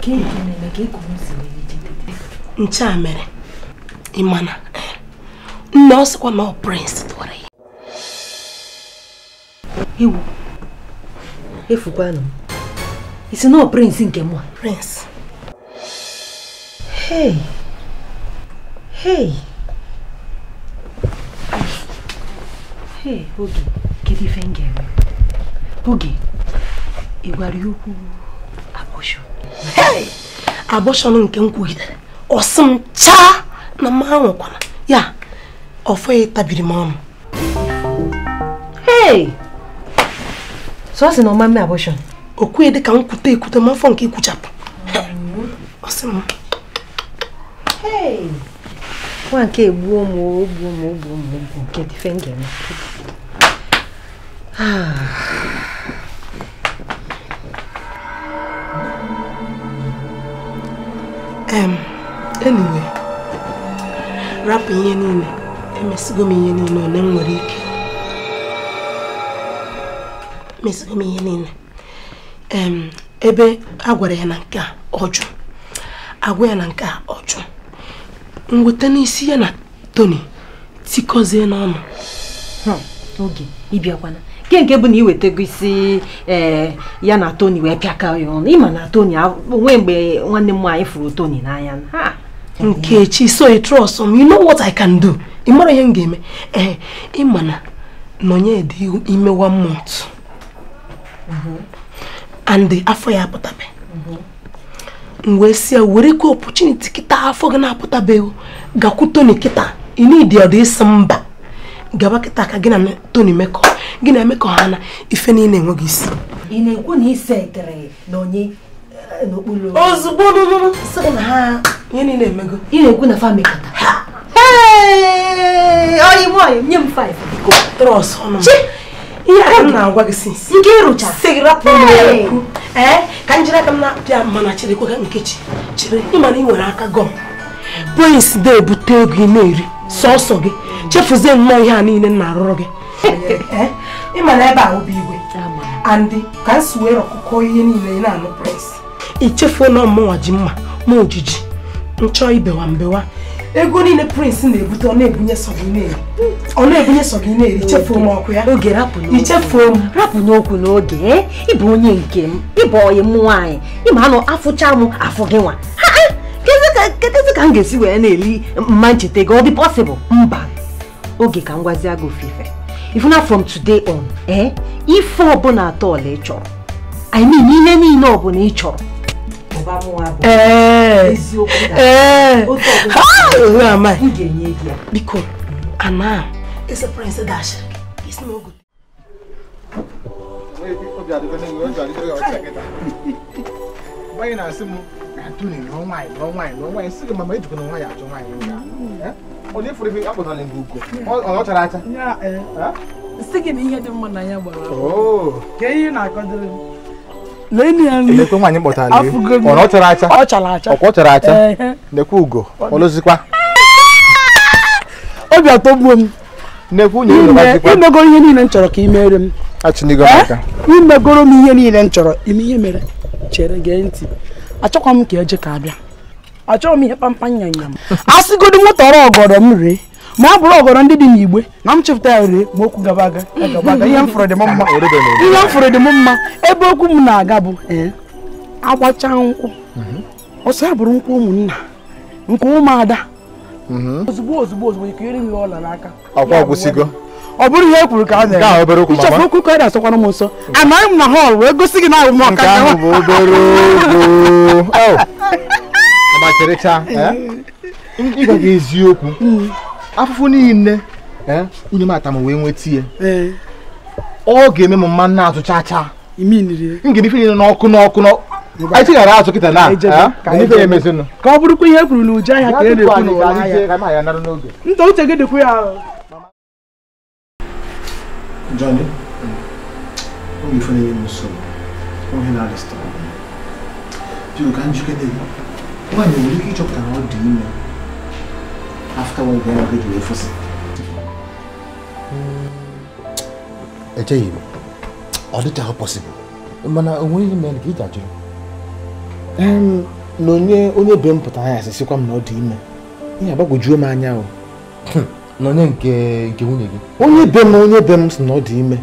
ka eji na é ka ekowe nsi wee jidede nche a mere ịmana nne ọ sịkwa na ọ prince tụwara ya Eu. E m isi o prince nke mụ prince hey hey hey oge kedu ife m ga-eme oge ị gwara ya okwu abọshọn hey abọshọn nke m kwugidere ọsị m chaa na m anwụkwana ya ọfọ ya tabiri m ọnụ hey só ọ sị na ọ ma mme abọshọn o kwughị dị de nkwute ekwute ma afọ nke ikwuchapụ ọ sị m nwa nke egbuo m ogbuo ah, ogbuo m Ah. nke dịfe m ga-eme em anyway rapụ ihe niile emesigo m ihe niile ole m nwere ike meziri m ihe niile ebe a gwara ya na nke a ọjụ agwa ya na nke a ọjụ mweta n'isi ya na Tony tikọzie n'ọnụ oge ịbịakwana nke nke bụ na iwetago isi e, ya na toni wee pịaka ya ọnụ ịma na Tony onwe mgbe nwanne m nwaanyị fụrụ Tony n'anya Nkechi so i trust me you know what I can do ị mara ihe m ga-eme ee ịma na nọnye dị imewa mmụọ and afọ ya apụtabe m wee si ya were ike opportunity kịta afọ gị na-apụtabeghị gakwụ Tony kịta ị na ọdụ ịsị mba gaba kịta ka gị na Tony mekọ gị na emekọ ha na ife niile enweghị isi na na eh, ozugbo nye m 5 ihe m na-agwa gị si nke ịrụcha si rapụ n'ekwu ee ka njiri aka m na-apịa mana cherekwa nkechi chere ịma na ị nwere aka gọm polis de ebute ego ị na-eri sọsọ gị chefuzie nnọọ ihe a niile m na-arụrụ gị ịma na ebe a bụ igwe andị ka m si wee rọkụkọ ihe niile ị na-anụ pres ichefuo na ọmụnwa ji mma ma ojiji nchọ ibewa mbewa ego niile prince na-ebute ọ na-ebunye sọ gị ọ na-ebunye sọ gị ichefuo m ọkụ ya oge rapụ n'okwu ichefuo m rapụ n'okwu n'oge ịbụ onye nke m ịbụ onye m nwaanyị ịma anụ afụcha m afụ gị nwa kedụzi ka m ga-esi wee na-eli mma ncheta gị ọ dị pọsịbụl mba oge ka m gwazie gị ofufe ifuna from today on ee eh, ife ọbụla atọ ọla ị chọrọ i mean ihe niile ọbụla ị chọrọ ọba mú wa bọ̀ ezi okwu dara otu ọbụla ị ga-enye gị ya. biko ana it's a prince dash it's no good. báyìí na-asị m na-atụ na lụọ nwaanyị lụọ nwaanyị lụọ nwaanyị sị gị mama ejikwa na nwaanyị achọ nwaanyị onye fụrụ ebe akpọtara gị ugo ọ chara acha sị gị na ihe dị mma na ya gbara ka ihe na-akọdịrị m lẹ́ni ẹni ẹ̀lẹ́kùn wà ní pọ̀tà lé ọ̀nà ọ̀tara acha ọ̀kọ̀ ọ̀tara acha nẹ̀kú ugò ọlọ́síkwá. obi atọ gbuo m nẹ̀kú nye ụlọ gbajikwa imegoro ihe niile m chọrọ ka ị mere m imegoro m ihe niile m chọrọ ime ihe mere chere gee ntị achọkwa m ka eje ka abịa achọghị m ihe kpamkpam nyanya m asịgodo moto ọrụ ọgọdọ m ree ma ọ bụrụ ọgọrọ ndị dị n'igbe na m chepụta ya were ma okwu gaba aga ihe m fụrụ dị m mma ihe m dị m mma ebe okwu m na-aga bụ agbacha nkwụ mhm. ọsọ ya bụrụ nkwụ ụmụnna nke ụmụada mhm. ozugbo ozugbo ozugbo ikere m ọla n'aka ọkwa ọgwụsigo ọ bụrụ ihe e kwuru ka a na-eme ichọfu okwu ka ọ na-asọkwara m nsọ amaghị m na họl wee gosi gị na abụ m ọka oh. eh? ga eziokwu mm. afụfụ niile nwunye eh? m atam wee nweta ya eh. ọ ga-eme m mma na-azụ chaa m ga ife niile n'ọkụ n'ọkụ anyị tighara azụ kịta na eh? ka ọ bụrụkwa ihe e kwuru n'uju ahịa ka e na-ekwu n'ụwa uche gị dịkwa ya Johnny, na na njikere after we bịara bido efosi echeghị m ọ dịchaghị mana onweghị mere ka ị um, na onye onye be pụtara asịsịkwa m na ime ihe anya o hm, na onye nke nke nwunye gị onye be m onye be m sị na ọ dị ime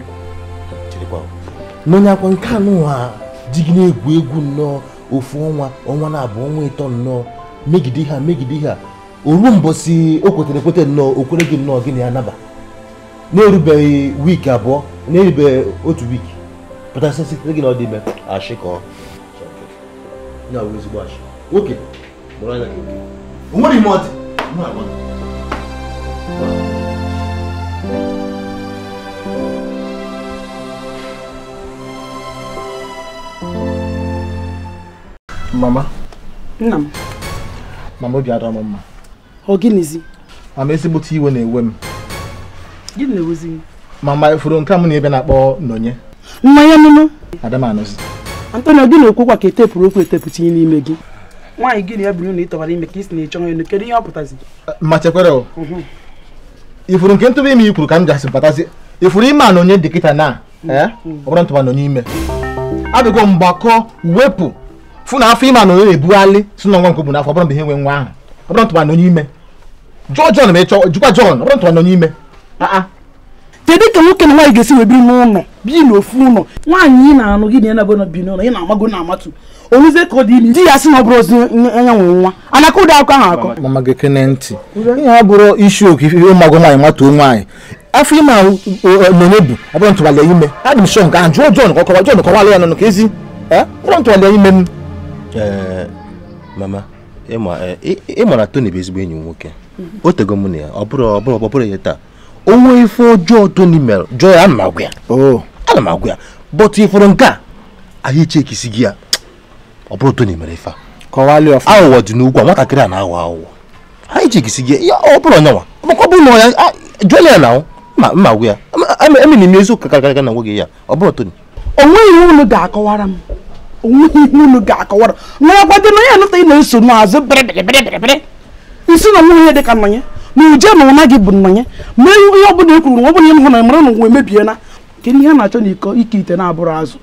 na onye akwa nke anụ ha gị na-egwu egwu nnọọ ofu ọnwa ọnwa na abụọ ọnwa ịtọ nnọọ megide ha megide ha oruo mbosi o kwetere ekwete nnọọ o kwere gị nnọọ gị na ya naba na-erubeghị wiiki abụọ na-erubeghị otu wiiki pụta sitere gị na ọ dị ime ashị oke ime ọ Mama. Nna m. Mama obi m mma ọ gịnịzi ama ezigbote iwe na-ewe m gịnị na-ewezi m. ma ifuru e nke a m na ebe na-akpọ nọnye mmanya nụnụ adamanụzi antonio gị na-ekwu kwa ka etepụrụ okwu etepụta ihe n'ime gị nwaanyị gị na ya bụrụ na ị tọbara ime ka ị si na ịchọ elu kedu ihe ọ pụtazi ma chekwere ifuru mhm. nke ntụba ime ikwuru ka m jasị batazi ifuru ime a na onye dịkịta na ọ bụrụ ntụba na onye ime abịago mgbakọ wepụ fụ na afọ ime a na onye na-ebughalị si na nwa nke bụ n'afọ ọ bụrụ mgbe ihe nwe nwa ahụ ọbụrụ ntụwa nọ n'ime jụọ John ma jụkwa ọbụrụ ntụwa nọ n'ime kedu ka nwoke na nwaanyị ga-esi wee biri n'ụlọ biri n'ofu ụlọ nwaanyị ị na-anụ gị na na bi n'ụlọ ị na-amago na amatu onye ka ọ dị ime di ya sị na ọ bụrụ ozi anya nwa anaka ụdị ahụ akọ mama gị kene ntị ihe ha bụrụ isi oke ife ụmụagụ nwaanyị nwatuo nwaanyị afọ ime ahụ na ime adị m ịma na e, Tony bụ ezigbo enyi m nwoke o tego m na ya ọ bụrụ ọ bụrụ ọ bụrụ ya taa onwe ife ọjọọ Tony mere jụọ ya ana agwa ya ana m agwa ya bọtụ ịfụrụ nke a ahịa ichekisi gị ya ọ bụrụ Tony mere ife a aghụghọ dị n'ugwu a nwatakịrị a na-aghọ aghụghọ anyị chekisi gị ya ọ bụrụ ọnyanwa makwa bụ na ọya jụọla ya na ma mma agwa ya emi emiri m eziokwu kakarịka na nwoge ya ọ bụrụ Tony o nweghị unu ga-akọwara m onweghị ihe unu ga-akọwara nwarakwadị na ya nụta ị na-eso n'azụ bịrịbịrịbịrịbịrị isi na nwa ya dị ka na uje na ụna gị bụ nnọnye mee ihe ọ bụla e kwuru na ọ bụla na mara na nwa emebiela kedu ihe a na-achọ na iko ike ite na-abụrụ azụ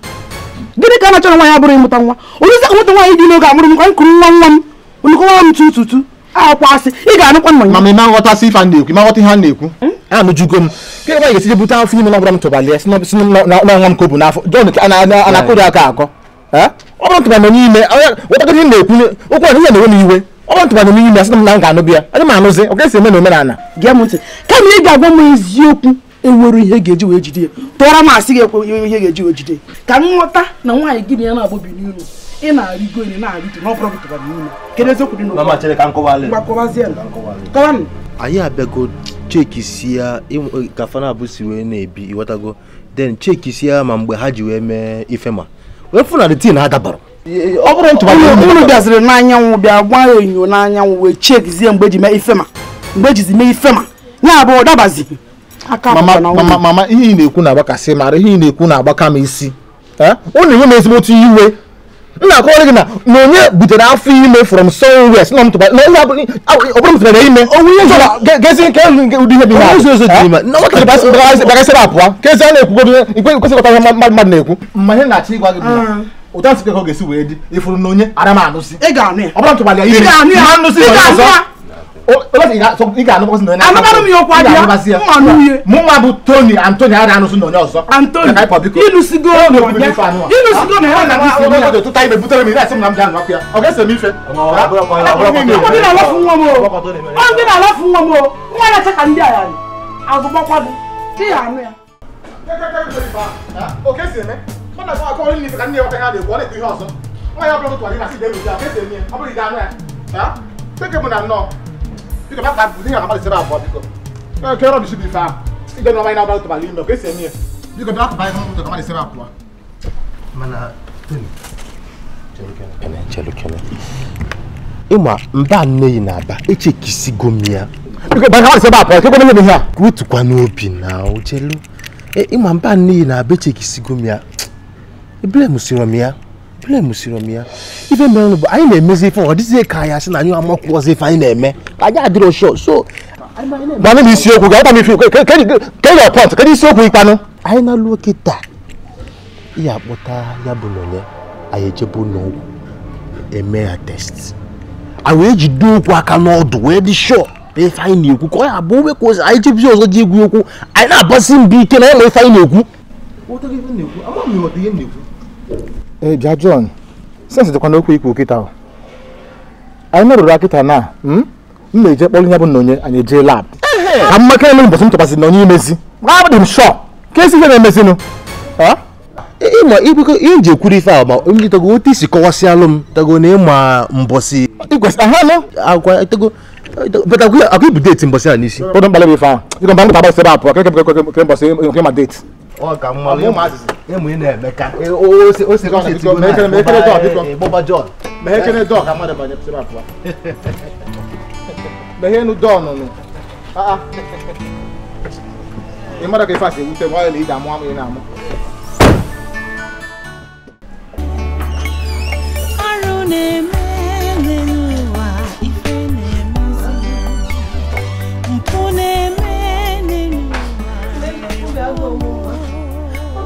gịnị ka a na-achọ na nwaanyị abụrụ ịmụta nwa onye isi nweta nwaanyị dị n'oge amụrụ m anyị nwa nwa m ga-anụkwa ma ma nghọta a na-ekwu ma nghọta ihe a na-ekwu hmm? m kịrịkwa ga-esije bute afọ ime ya si n'ọnwa m a akọ ọ bụrụ ntụmanụ n'ime ụtago ihe na-ekwu okwu a ihe na-ewe iwe ọ bụrụ n'ime asị m na m ga-anụ bịa anụzi ọ ga-esi eme na omenala gee m ntị kama ị ga-agwa m eziokwu enwere ihe ga-eji ya tụọrọ m asị gị ekwe e ihe ga-eji ka m na nwaanyị gị na ya na-agbọbi ị na-arịgo na na n'ime kedu eziokwu dị anyị na-ebi cheki si ya ma mgbe ha ji wee mee ifema efunarị tii na-adabara ọ bụrụ ntụba unu bịaziri n'anyanwụ bịa gba ya enyo n'anyanwụ wee chekizie mgbe ji mee ifema mgbe ejizi mee ifema ya bụ ọdabazi mama ihe ị na-ekwu na-agbakasị mara ihe ị na-ekwu na-agbaka m isi ụnụ eh? na-enye m ezigbo otu iwe nna akọwara gị na na onye butere afọ ime from somewhere si na m tụkwara na onye abụghị ọ bụrụ mụtara ime gezi nke elu ụdị ihe bi na ụzọ ụzọ dị ime na ọ kachasịrị apụa kezi a na-ekwugodo ikwe kwesịkọta ihe mmadụ na-ekwu ma ihe na-achọ ịgwa gị ụta mm. sikọ ka ọ ga-esi wee dị ịfụrụ na onye ara m anụsị ọ bụrụ m tụkwara ya ime ma anụsị ọzọ olóòtú ìgbà so ìgbà àná kọ́sí nìyẹn. anabanu mi yọ kó adiá mú ànú yé. mú ma bu tóni antoni ara ànú sún nìyẹn ọ̀sọ́. antoni ìlú sigo nìyẹn ìlú sigo nìyẹn ọ̀nà bí sinmi yà. tó táyé bẹ bútẹ́rẹ́ mi láti múnamú dànù wákìá ọ̀gá ẹsẹ̀ mi fẹ́. ọkọ̀ dín àlọ́ fún wọn o ọkọ̀ dín àlọ́ fún wọn o wọn yà sẹ́ka ndí àyà rẹ̀ àgùnbọ̀ kwadu kí yà ànú yà. kẹ́kẹ́ kẹ́kẹ́ Biko ba ba dinga kama lisira abo biko. Eh kero disi bifa. Iga no maina ba to bali no kesi emi. Biko ba ba kama to kama lisira abo. Mana tuni. Ene chelo kene. Ima mba nne yi na-aba eche kisi gomia. Biko ba kama lisira abo ke gomia ni ha. Rutu kwa n'obi na o chelo. E ima mba Bule musirom ya. Ife mere bụ anyị na-emezi ife ọ dịzie ka anyị asị na anyị amakwu ọzọ ife anyị na-eme. Anyị adịrọ shọ so. Mana m isiokwu ga-agba m ife kedu ọpọt kedu isiokwu ikpanụ. Anyị na-alụ kịta ya akpọta ya bụ n'onye anyị ejebe n'ọgwụ eme ya test. Anyị wee jide okwu aka n'ọdụ wee dị shọ ife anyị na-ekwu ka ọ ya abụ omekwa ọzọ anyị jebizi ọzọ ji egwu okwu anyị na-abasi mbụ ike na ya na ife anyị na-ekwu. Jọn eh, bịa John sensị dịkwa okwu ikwu kịta ahụ anyị nọrụrụ na hmm? m na-eje kpọrọ ya bụ na onye anyị ejee lab ka mmaka elu mbọsị na onye imezi abụdị m shọ ka esi ihe na-emezinụ ihe e, ife a ma ndị tago otu isi kọwasịalụ m tago na ịma mbọsị igwesị aha anụ agwa tago but aku aku ibu date mbɔsi ani si. o don balẹ̀ bi fa i kan bange taba sɛbɛn a pɔ kɛlɛ kɛlɛ kɛlɛ mbɔsi kɛlɛ ma date. ɔ ka mɔ ye maa sisi e mun ye ne mɛka o se o se o se tigo na mɛ kɛnɛ dɔn a bi dɔn bɔba jɔ mɛ kɛnɛ dɔn a ka ma dɛ ba ne sɛbɛn a pɔ mɛ hɛnu dɔn nɔnɔ wa yɛlɛ i d'a mɔ a mɔ i n'a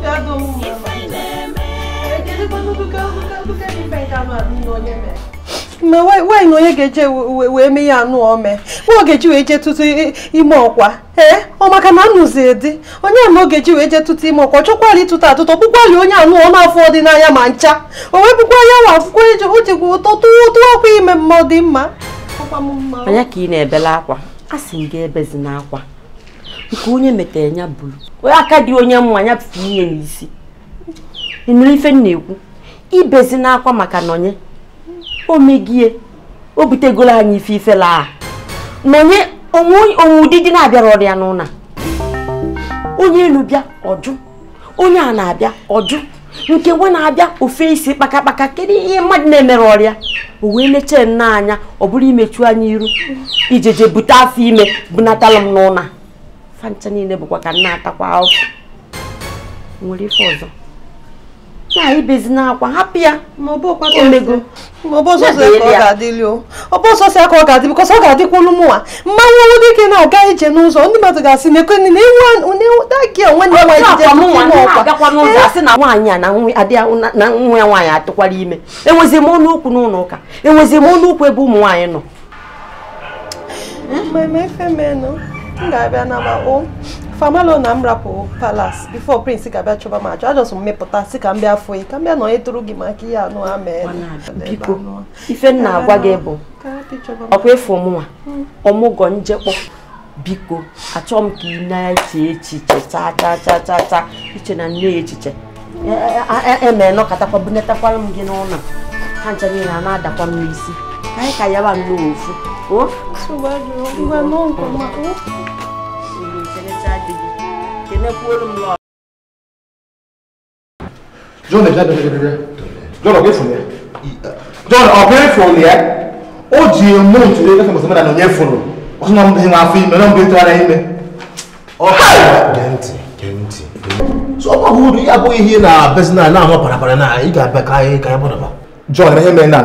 ga-adụ m ma nwaanyị na onye ga-eje wee mee ya anụ ome nwa ogeji wee jee ime ọkwa ee ọ maka na anụzi dị onye oge ji wee jee tụtụ ime ọkwa chọkwala ịtụtụ atụtụ ọkpụkwali onye anụ ọma afọ nanya ma ncha o wee bụkwa ya nwa akwụkwọ eji ojigwa ụtọ tụ tụọ akwa ime mma dị mma anya ka ị na ebele akwa a sị m gị ebezina akwa ka onye metere ya bụrụ aka dị onye mma ya pụta ihe n'isi ịnụrụ ife m na-ekwu ibezi n'akwa maka nọnye omegie o butegoro anyị ife ife laa nọnye onwe ụdị dị na-abịara ọrịa n'ụna onye elu bịa ọjụ onye a na-abịa ọjụ nke nwe na-abịa ofe isi kpakakpaka kedu ihe mmadụ na-emere ọrịa o wee mechie nna anya ọ bụrụ imechu anya iru ijeje bute afọ ime bunatala m n'ụna. afa niile bụkwa ka nna atakwa afọ nwere ife ọzọ na ibezi n'akwa hapụ ya ma ọ bụ ọsọsọ ka ọ ga-adị bịkọsọ ọ ga-adịkwa olu mụnwa mmanwụ ọnwụ dike na-aga ije n'ụzọ ndị mmadụ ga-asị mekweni na ewudagị nwanne nwaanyị jije na nwaanyị a na nwa ya nwaanyị atụkwara ime enwezi m ọnụ okwu n'ụlọ ụka enwezi m ọnụ okwu ebe ụmụ nwaanyị nọ m ga-abịa nabao famalo na m rapụ palas bifo prince ga-abịa chọba m achọ ajọsọ m mepụta si ka m bịa fụ ka m bịa e tụrụ gị maka ihe anụ ha mee biko ife m na-agwa gị bụ ọkwa efu ọmụnwa hmm. ọmụgwọ njekpọ biko achọ m ka ị na-eche echiche chaa chaa chaa chaa chaa iche na nne echiche emee e, e, nọkọtakwa bunatakwara m gị n'ụlọ ha ncha niile a na-adakwa m n'isi káyíká yá bá ń lo òun fún. ó ṣùgbọ́n ìgbà náà nǹkan máa ó. John, ìṣẹ̀lẹ̀ e tí a dìbò kìíní kúrò ló ń lọ. john ẹja dọdọ dọdọ john ọgbẹ fún yẹ john ọgbẹ fún yẹ ó di mú nítorí kẹfẹ mọsán mẹ́ta nìyẹn fún un ó tún náà ń bẹyìn àfi mẹ náà ń bẹyìn tó ara yín mẹ. gẹ̀ǹtì gẹ̀ǹtì. so ọmọ hudu yà bọ ihe na bẹsẹ náà náà mọ parapara náà yìí kà bẹ ká yẹ ká yẹ bọ dọba. john ẹ hẹ mẹ náà.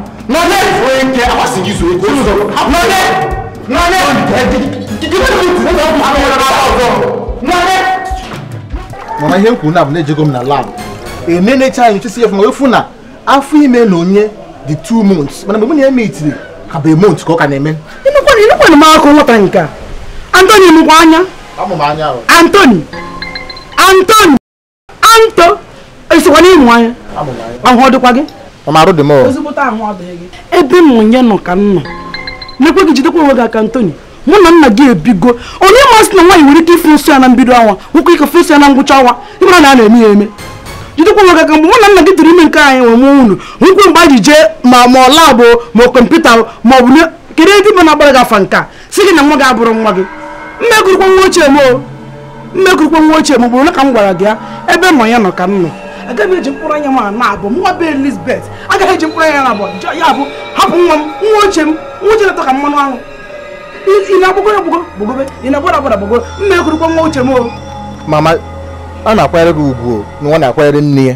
nọlẹ. oye ike awa sigi zuo ike. olu sọ̀rọ̀ nọlẹ nọlẹ. mama ihe m na bụ na-ejego m na lab emenecha anyị nchesi efu ma efu na afọ ime na onye dị 2 months mana mgbe m na-eme itiri ka bụ emont ka ọ ka na-eme enukwana m akụ nwata nke a antoni mụkwa anya antoni oh. antoni anto esikwana ịmụ anya ahụ ọ dịkwa gị arụ dị m ebe m nye nọ ka nnọ nọ gị jidekwa onwe gị aka ntoni mụ na nna gị ebigo onye masị na nwaanyị nwere ike ife ya na mbido anwa nwoke ike fesi ya na ngwụcha awa ịmara na a na-eme ya eme jidekwa onwe gị aka mgbe mụ na nna gị tụrụ ime nke anyị nwe mụọ unu nkwu mgbe anyị jee ma ma labụ ma kọmputa ma ọ bụ kedu ebe na-agbara gị afa si gị na nwa gị abụrụ nwa gị mmekụrụkwa nwa ochie m nwa ochie m bụrụ na ka m gwara gị ebe nọ ya nọ ka m agaghị eji mkpụrụ anya m na abụ nwa be Elizabeth agaghị eji mkpụrụ anya na abụ ya bụ hapụ nwa m nwa ochie m nwa ochie na-atọ ka mmanụ aṅụ ị na-agbago ya gbogo ị na-agbada agbada gbogo mma ekwurukwa nwa m o mama a na-akwanyere gị ugwu na nwa na-akwanyere nne ya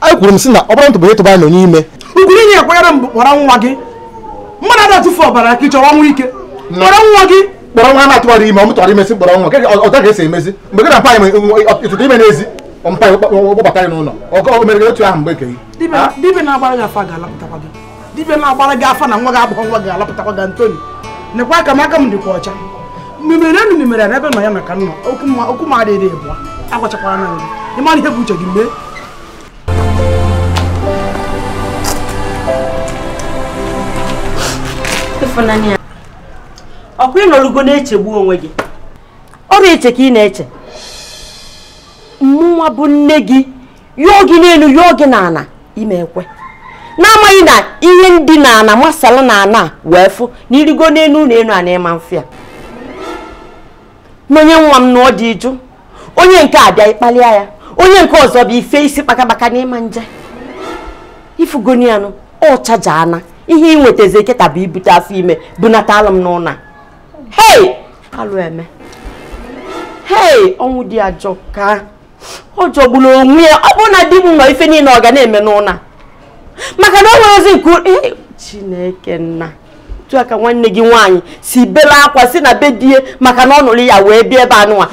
anyị kwuru na ọ bụrụ ime inye akwanyere m kpọrọ nwa gị mmadụ ada-atụfu ọbara ka ị nwa ike kpọrọ nwa gị kpọrọ nwa na-atụgharị ime ọ imesi kpọrọ emezi mgbe gị na mpa anyị ime n'ezi gbabata ya n'ụlọ ọkọ mere gị otu ahụ mgbe ekeghị dibịa na-agbara gị afa ga-alapụtakwa gị dibịa na-agbara gị afa na nwa gị agbụghọ nwa ga-alapụtakwa gị Antoni nekwa aka m aka m dịkwa ọcha mmemere enu mmemere ya n'ebe nọ ya maka nna okwu m adịghị ebu agwachakwara na nri ịmara ihe bụ uche gị mgbe ọkụ ị nọrụgo na-echegbu onwe gị ọ bụ eche ka ị na-eche mmụọ bụ nne gị yụọ gị n'elu yụọ gị n'ala ime ekwe na na ihe ndị na masala na wee fụ na irigo n'elu ụlọ elu a na ịma mfe ya n'onye nwa m na dị jụ onye nke a bịa ya onye nke ọzọ bụ ife isi kpakabaka n'ịma nje ifugonianụ ọ chaja ana ihe ị nwetazi eketa bụ ibute afọ ime bunata alụ m n'ụlọ hei alụ eme hei ọnwụ dị ajọ ka ọ jọgburu onwe ya ọ bụrụ na di m nọ ife niile ọ ga na-eme n'ụna maka na o nwere ozi nke chineke nna tụọ ka nwanne gị nwanyị si bela akwa si na be die maka na ọ nụrụ ya wee bịa ebe anụnwa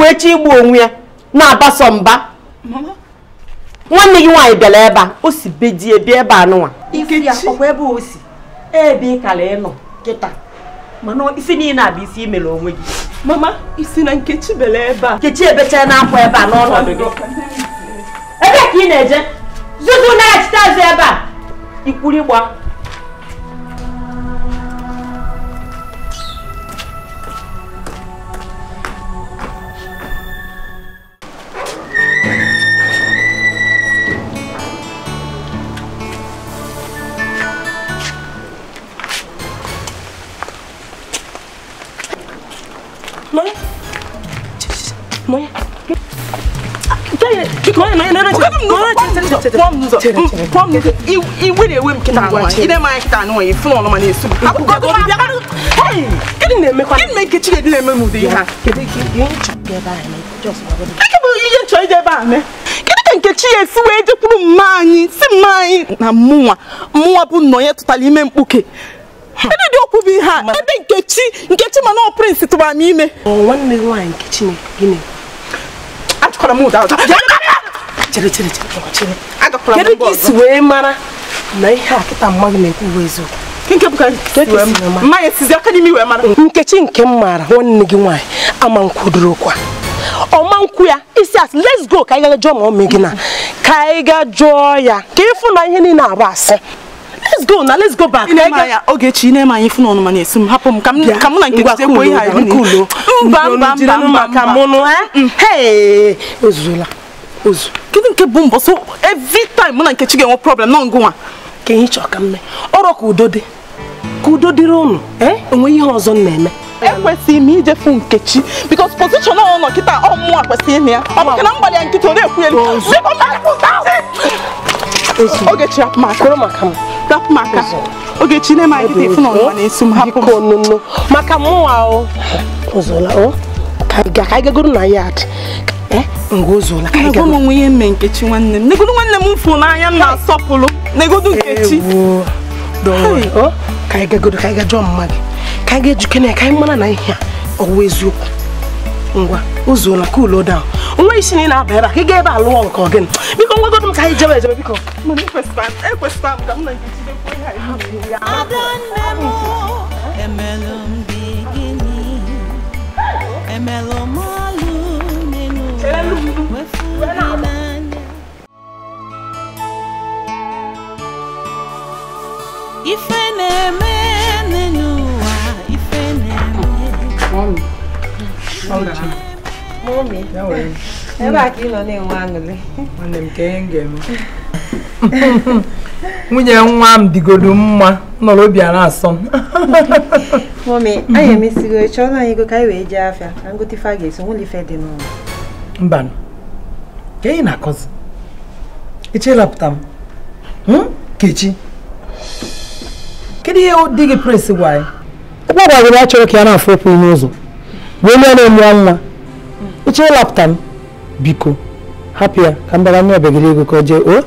wee chi igbu onwe ya na-abaso mba nwanne gị nwaanyị bịara ebe a o si be die bịa ebe anụnwa ebe ị kara ịnọ kịta mana isi niile a bụ isi imere onwe gị mama isi na nkechi bere ebe a nkechi ebechaa na akwa ebe a n'ọnọdụ gị ebe ka ị na-eje zuzu na-achịta azụ ebe a ikwuru ịgba nọnye nọnye iwe na ihe a bụ ihe ka nkechi ya esi si mma anyị na mụnwa bụ nnọnye tụtara ime mkpuke ndị dị okwu bụ ihe a ndị nkechi nkechi mana ọ prịnsị tụbara m ime gị nkechi ka na ihe a kịta na-ekwu aka mara nkechi nke m maara nwanne gị nwaanyị ama nkwudorokwa ọma nkwu ya isi asị let's go ka anyị jụọ ma ọ mee na ka anyị ga jụọ ya ka ịfụ na ihe niile abụ asị let's go na let's go back Ogechi na-eme anyị fụna ọnụma na-esi m hapụ m ka mm. mụ na nke sekwu ihe anyị n'ulo mba mba mba mba ka mụnụ ozuzula eh? mm. mm. ozu kedu nke bụ mbọ so every time mụ na Nkechi ga-enwe problem nọ ngụnwa ka ihe chọọ ka mme ọrọ ka udo dị ka udo dịrị ụnụ enwe eh? ihe ọzọ m na-eme ekwesịghị m ijefu Nkechi bikos pozishọn ọ nọ kịta ọmụmụ a kwesịrị ya ọ bụ na mgbalị ya nkịta ọ na-ekwu ya Ogechi hapụ m aka. Kwere m aka m. Ogechi na-eme anyị dịte ịfụna na-esi m hapụ m. maka mụnwa o. Ozola o. Ka anyị gagoro na yard. Ngozola ka eh, anyị gagoro. Agwa m onwe ihe mme Nkechi nwanne m. Negodu nwanne m mfu n'anya m na-asọpụrụ. Negodu Nkechi. Ewo. Dọwọ. Oh. Ka anyị gagoro ka anyị gajụọ mma gị. Ka anyị ga-ejuke ya ka anyị mara na ihe a ọ bụ eziokwu. Ngwa ozola cool daa. nwa isi na ị na-aba ebe a ka ị gaa ebe a lụọ nke ọgịnị biko nwagodo m ka anyị jebe ejebe biko ekwesịkwara na nke jidekwa ihe ife na-eme n'ụwa ife ebe a ka ị nọ na-enwe aṅụrị nwanne m ka ihe m nwunye nwa m digodo mma nọrọ obi a asọ m mọmi anyị emesigo chọrọ anyị ego ka anyị wee jee afịa na ngote ife a ga-eso nwụlọ ife dị n'ụlọ mba ka anyị na-akọzi echelapụta m hmm? kechi kedu ihe dị gị presi gwa anyị ọkpọ a chọrọ ka ya na-afụ okwu n'ụzọ wee lie na-emụọ nwa ịchọ ịlapụta m biko hapụ ya ka m bara nye obegiri ego ka o jee o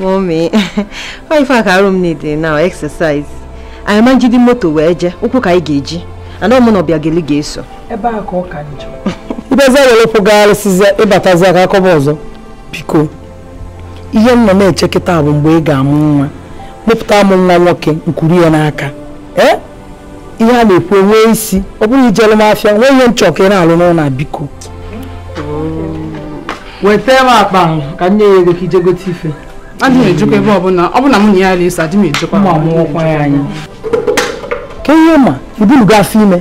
mọmi ọ ife aka arụ m na-ede na exercise anyị ma njide moto wee jee ụkwụ ka anyị ga-eji ana mụ na ọbịageli ga-eso ebe a ka ọ ka njọ ibezi ewelụpụgharịsịzi ịbatazi aka akọba ọzọ biko ihe m nọ na-eche bụ mgbe ị ga-amụ nwa mụpụta m nwa nwoke nkwuru ya n'aka ee eh? ihe a na-ekwu nwee isi ọ bụrụ ijelu m afịa nwee ihe nchọ ka ị na-alụ n'ụlọ biko weta m akpa ka nne ya ego ka ije gote ife adị m ejikwa ebe ọbụla ọbụla mụ na ya na-eso adị m ejikwa ma mụọkwa ya anyị ka ihe ma gị afọ ime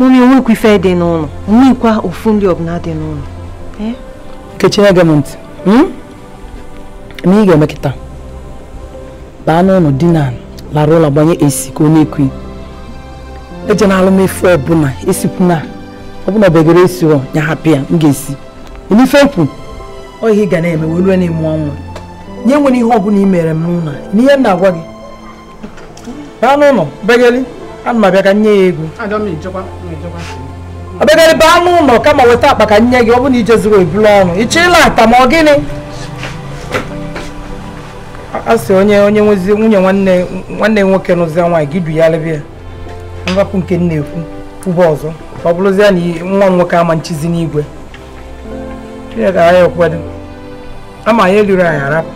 mmiri nwekwa ife dị n'ụlọ nwekwa ofu ndị ọbụla dị n'ụlọ eh? nkechi ege m ntị na hmm? ị ga-emekịta baa n'ụlọ na larụ ụlọ gbanye esi ka ọ na-ekwu ejena alụmefu ọbụla esikwuna ọbụla begere esi ya hapụ ya m ga-esi ife kwu ọ ihe ị ga na-eme wee rue na ịmụ ọnwụ nye nwere ihe ọbụla i mere m n'ụlọ n'ihe na-agwa gị m abịa ka nye ya ego baa n'ụlọ kama weta akpa ka nye gị ọ na ije ọnụ ị chọ ịla ma gịnị a sị onye onye nwezi nwunye nwanne nwanne nwoke n'ụzi nwaanyị gị du ya mwapụ nke m na-ekwu ụba ọzọ ọ bụrụzie na nwa m nwoke ama nchizi n'igwe chineke agaghị ekwedo ama anyị eluru anyị arapụ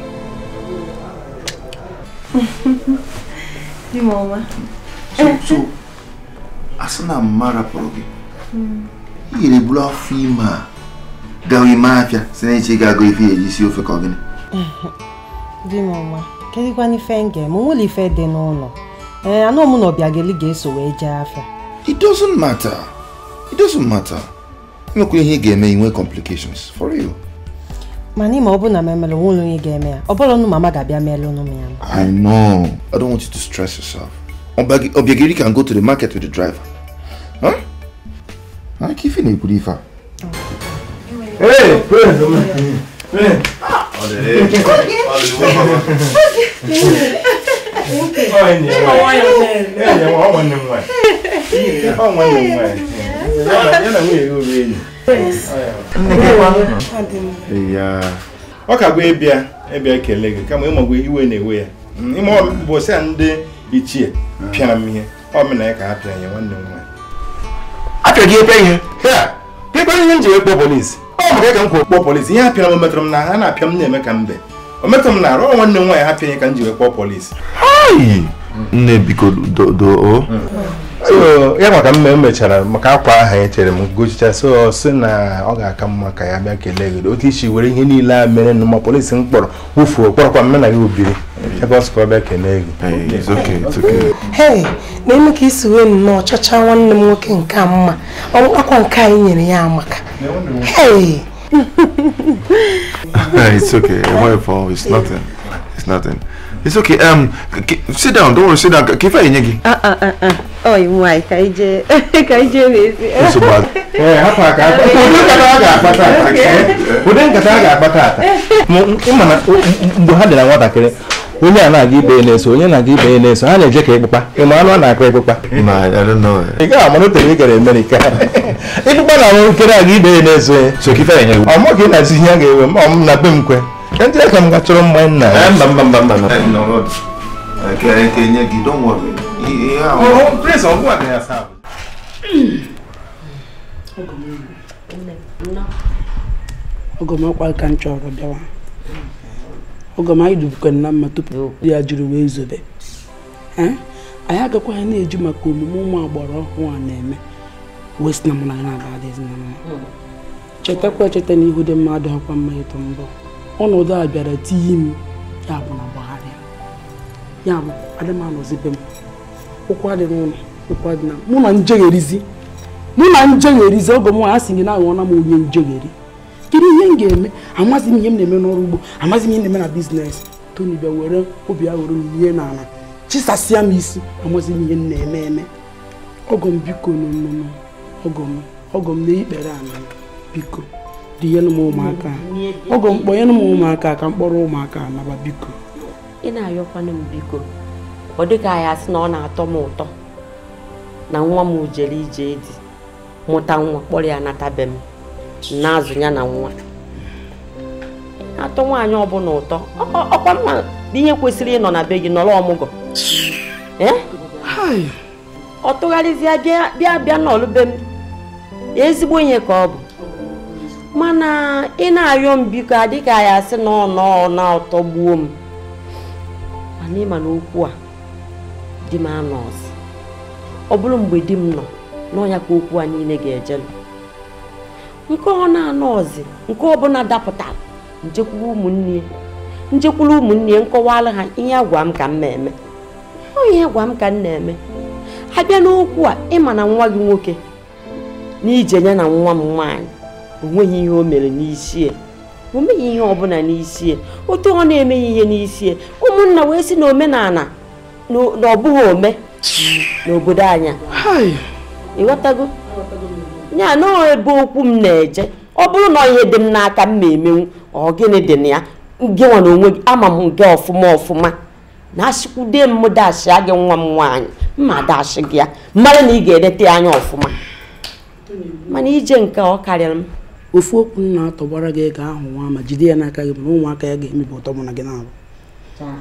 asị na mma rapụrụ gị ị iyere buru afọ ime a gawa ime afịa si na echi ga-agụ ife eji si ofe ka ọ gịnị di m ọma kedụkwana ife m ga-eme nwere ife dị n'ụlọ ee anụ ọmụ na ga-eso wee jee afọ. it doesn't matter it doesn't matter imekwa ihe ga-eme inwe complications for you mana ịma ọ bụ na m emere onwe onye ga-eme ya ọ bụrụ mama ga-abịa meere ụnụ m ya I know I don't want you to stress yourself ọbịageli can go to the market with the driver huh? aka ife na-ekwuru ife a Hey. ọ ka bụ ịbịa ịbịa ekele gị kama iwe na-ewe ya ime ọbụbọsị a ndị ichie pịara m ihe ọ mena ya ka ha pịara ya nwanne m nwaanyị apịa gị ekwe ihe ekwe ihe m ji ekpo polisi ọ maka ka m kwuo kpọọ polisi ihe a m metụrụ m na ha na-apịa m na-eme ka mbe o metụrụ m na arụ nwanne m nwaanyị ha pịa ka m ji wee kpọọ nne biko doo so ya maka mme mechara maka akwa aha e chere m gochicha so si na ọ ga-aka mma ka ya bịa kelee gị otu isi were ihe niile a mere na ma polisi m kpọrọ wufuo kpọrọkwa na ya obiri ebe ọ sị ka ọ bịa kelee gị hei na-eme ka isi wee nnọọ chọcha nwanne m nwoke nke a mma ọkpakwa nke anyị nyere ya amaka hei It's okay. Um, sit down. Don't worry. Sit down. Kifa enye gị. Ah ah ah Oh, ah. nwa ka ije ka ije n'ezi. so bad Eh, ka. Ụdị nkata a akpata ata. Ụdị nkata a ga-akpata ata. Ịma mgbe ha dị na nwatakịrị onye a na-aga ibe na-eso onye na-aga ibe na-eso ha na-eje ka ịkpụkpa ịma anụ a na-akpa ịkpụkpa ị na-arụ nkere aga ibe ya ọ na ihe a ga enwe ma ọ na be m kwe Ndị aka m gatụrụ mma nna ya. Eh, mba mba mba mba. Eh, Kenye gị, don't worry. Ihe ahụ. Prince ọ bụwa ya saa. Oge m ọkwa ka m chọrọ bịawa. Oge m anyị dubukwana na mma tupu ya jiri wee zobe. Eh? Anyị agakwaghị na-eju maka omume ụmụ agbara ọhụụ a na-eme. West na mụ na ya na-aba adịghị na mma. Chetakwa echeta na ihu dị mmadụ ọkwa mma ịtụ mbọ. ọnọdụ a bịara tinye m ya bụ na gbagharịa ya bụ adị m anọzibe m ụkwụ adị n'ụlọ ụkwa dị na mụ na njegherizi mụ na njegherizi ọgọ m a sị gị na aghọọla m onye njegheri kedu ihe m ga-eme amaghị m ihe m na-eme n'ọrụ ugbo amaghị m ihe na-eme na biznes toni bịa were obi ya m ihe n'ala chisasịa m isi amaghị m ihe m na-eme eme ọgọ m biko n'ọnụnụ ọgọ m ọgọ m na ikpere ala biko dị m ụmụaka mkpọ ihe m ụmụaka ka mkpọrọ ụmụaka naba biko ị na-ayọkwana m biko ọ dịka anyị asị na ọ na-atọ m ụtọ na nwa m jere ije dị mụta nwa kpọrọ ya natabe m na-azụ ya na nwa atọ nwaanyị ọbụla ụtọ ọkwa mma ihe kwesịrị ịnọ na be gị nọrọ ọmụgwọ ọ tụgharịzịa bịa bịa n'ọlụ be m ezigbo ihe ka ọ bụ mana ị na-arịọ m biko adịka ya asị na ọ na ọtọ gbuo m mana ịma na okwu a di m anọ ọ bụrụ mgbe di m nọ n'ọnya ka okwu a niile ga-ejelu nke ọ na-anọ ọzi nke ọbụla dapụtara njekwuru ụmụnne njekwuru ụmụnne nkọwala ha ihe agwa m ka m na-eme ọ ihe agwa m ka m na-eme ha bịa n'okwu a ịma na nwa gị nwoke na ije ya na nwa m nwaanyị o ihe o mere n'isi e. o meghị ihe ọbụla n'isi e. otu ọ na-emeghị ihe n'isi e. ụmụnna wee sị na omenala na ọbụghị ome n'obodo anya ịghọtago ya na ebe okwu m na-eje ọ bụrụ na ihe dị m n'aka m na-emenwu ọ gịnị dị na ya gịnwa na onwe gị ama m nke ọfụma ọfụma na asịkwude m dashịa gị nwa m nwaanyị mma dashị gị ya mmadụ na ị ga-edete anya ọfụma mana ije nke ọ karịrị m ofu okwu m na-atọgbara gị ego ahụ nwa ma jide ya n'aka gị na ụmụaka ya ga-emebi ụtọ mụ na gị na-abụ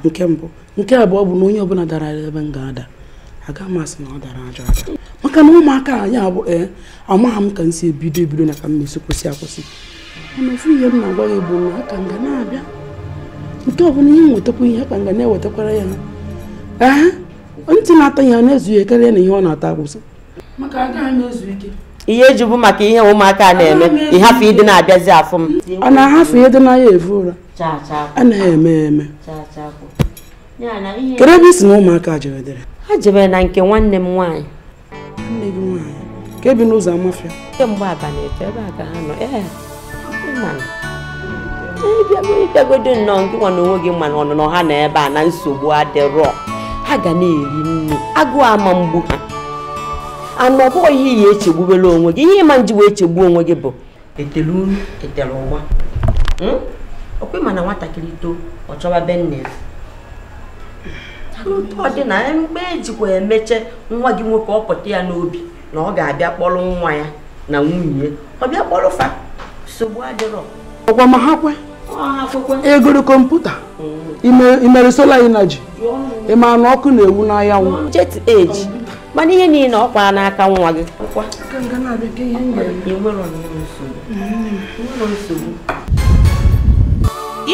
nke mbụ nke abụọ bụ na onye ọbụla dara ebe m ga-ada aga m asị na ọ dara ajọ aja maka na ụmụaka anyị abụ ee eh, amaghị m ka m si ebido ebido na ka m na-esi kwụsị akwụsị mana ofu ihe m na-agwa gị bụ na aka nga na-abịa nke ọbụla ihe nwetakwa ihe aka nga na-ewetakwara ya ee ntị na-ata ya na-ezughị karịa na ihe ọ na-ata akwụsị maka agaghị m ezu ike ihe ejibu maka ihe ụmụaka na-eme ịhafụ ịdị na-abịazi afọ m ọ na-ahafụ ihe dị na ya evu ụra anaghị eme eme kedu ebe isi na ụmụaka jeredere ha jebere na nke nwanne m nwaanyị nne gị nwanyị. ka ebi n'ụzọ amafịa kemgbe abalị efe ebe a ka ha nọ ee ịbịagodo nnọọ nke nwa na onwe gị mana ọnụnọ ha na ebe a na nsogbu adịrọ ha ga na-eri nri agụụ ama mgbu ha anụ ọ bụghị ihe iyi echegbubela onwe gị ihe ịma nji njiwa echegbu onwe gị bụ etelu uru etele ụgba hmm? okwe nwatakịrị too ọ chọba nne ya ọ dị na mgbe ejikwa emeche nwa gị nwoke ọ pụta ya n'obi na ọ ga-abịa kpọrọ nwa ya na nwunye ọ bịa kpọrọ fa nsogbu adịrọ ọkwa ma ha kwe egoro e kọmputa hmm. imere sola inaji ịma na ọkụ na-ewu n'anyanwụ jet age mana ihe niile ọ kwaa n'aka nwa gị hmm.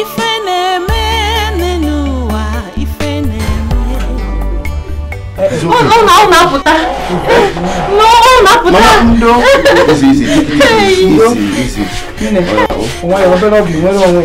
ife na-eme n'ụwa ife na-eme ụlọ ụlọ apụta ụlọ apụta nwaanyị obere ọbụ nwere onwe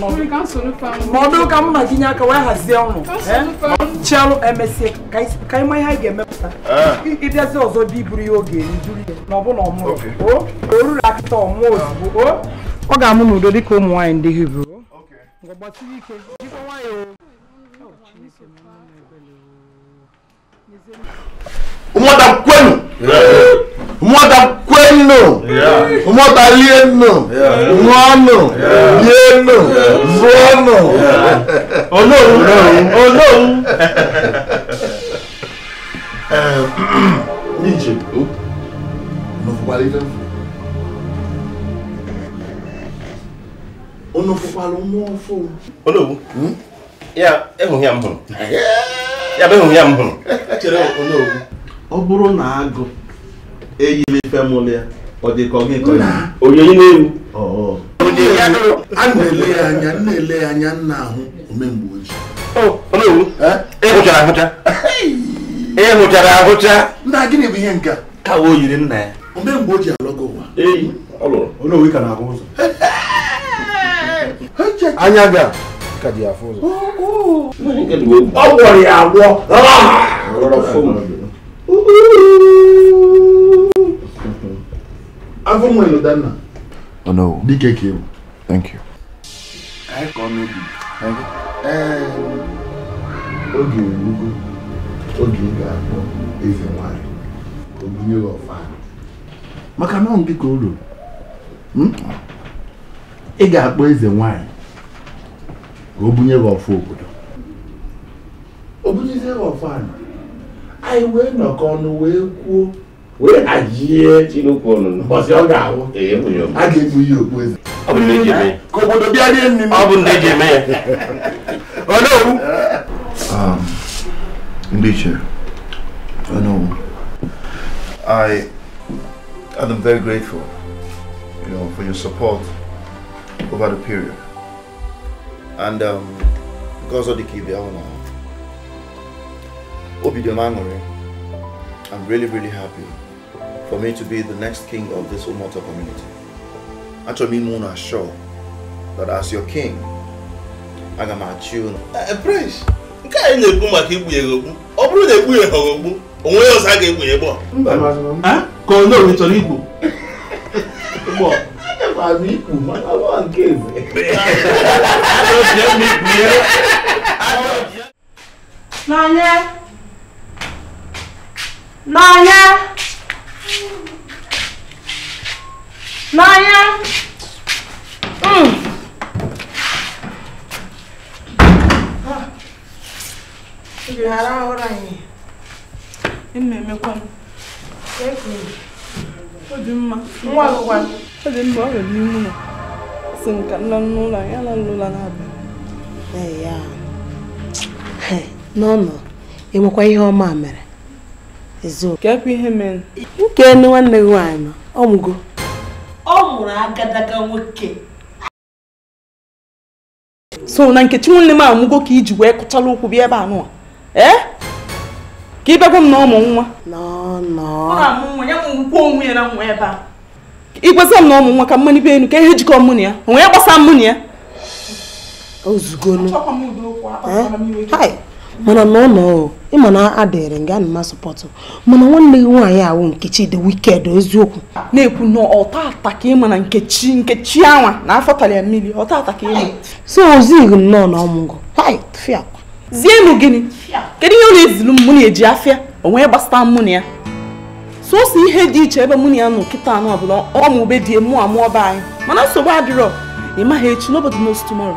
ma ọ bụrụ ka m na gị nye aka wee hazie ọnụ chialụ emesie ka ịma ihe anyị ga-emepụta ịbịazi ọzọ bịa iburu ya oge nduru ya na ọbụla ọmụrụ o oruru akịta ọmụọ ozugbo o ọ ga-amụ n'udo dịka ụmụ nwaanyị ndị hibru gbachiri ike jikwa nwayọọ ụmụada kwenu mwota kwenu mwota lienu ngọnu yenu zonu olóhùn olóhùn. ní ìjẹ̀bú ọ̀nàfọ̀pá lè fẹ́ fún ọ̀nàfọ̀pá ló mú ọ fún. olóhùn ya ehun ya m hụrụ ya bụ ehun ya m hụrụ. ọ bụrụ na agụ eyile ife mụlụ ya ọ dị ka ọ gị ka onyonyo na-ewu a na-ele anya na-ele ya anya nna ahụ omemgbe ojii ịhụchara ahụcha ịhụchara ahụcha nna gịnị bụ ihe nke a ka o yiri nna ya omemgbe ojii alọgo ụwa olóòwe ka na-ahụ ụzọ anya ga oh, oh. ọ gwọrọ ya agwọ afọ nwere danna oh no dike ka ịbụ thank you anyị ka ọ ehm, oge erugo oge ị ga-akpọ eze nwanyị obinye ọfa maka na dị ka o ruru hmm? ị ga-akpọ eze nwanyị ka o bunye gị ọfụ obodo o bunyezie gị ọfụ anyị anyị wee nọkọ ọnụ wee kwuo wee ajie you, ọnụ n'ụbọchị ọ ga-awụ a ga-egbu ya okpu eze ka obodo bịa rie nri ọ bụ ndị I am oh, um, oh, very grateful you know, for your support over the period and um, because of the ka ibe ahụ i I'm really, really happy for me to be the next king of this Umoto community. Actually, me Muna sure that as your king, I am at you. you Uh, Prince, nke anyị na-ekwu maka igbu ya egbu ọ bụrụ na egbu ya ha ogbu onwe ya ọzọ a ga-egbu ya egbu a ka ọ nọrọ chọrọ igbu n'anya n'anya n'anya ghara mm. ụra anyị ị na-eme ememekwa m obi mma nwa ọ dị mma ọ nwere ihu na si m ka n'ụlọ anyị ala n'ụlọ na-abịa ya n'ọnọ enwekwa ihe ọma mere ka kekwa ihe mere nke nwanne gị nwaanyị ọ mụgo ọ mụrụ agadaga nwoke so na nkechi nwanne m amụgo ka iji wee kụchala ụkwụ bịa ebe a nụwa ee ka ịbịagwa m na ọmụ nwa ikwesa m na ọmụ nwa ka mmanụ ibe enu ka ihe jikọ mụ na ya onwe ya gbasa mụ na ya ozugolo mana na ụlọ ịma na adịrị nga na masọpọtụ mana nwanne gị nwaanyị ahụ nkechi dị wiked eziokwu na-ekwu na ọta ataka ịma na nkechi nkechi anwa na afọ tara mmiri ọta ka ịma so ozighị nnọọ na ọmụgwọ zienụ gịnị kedu ihe ọ na-ezilu m mụ na-eji afịa onwe gbasata mụ na ya sọsọ ihe dị iche ebe mụ na ya nọ nkịta anụ ọbụla ọmụ ube dị mụ amụọ be anyị mana nsogbu adịrọ ị maghị echi n'obodo n'otu tomorrow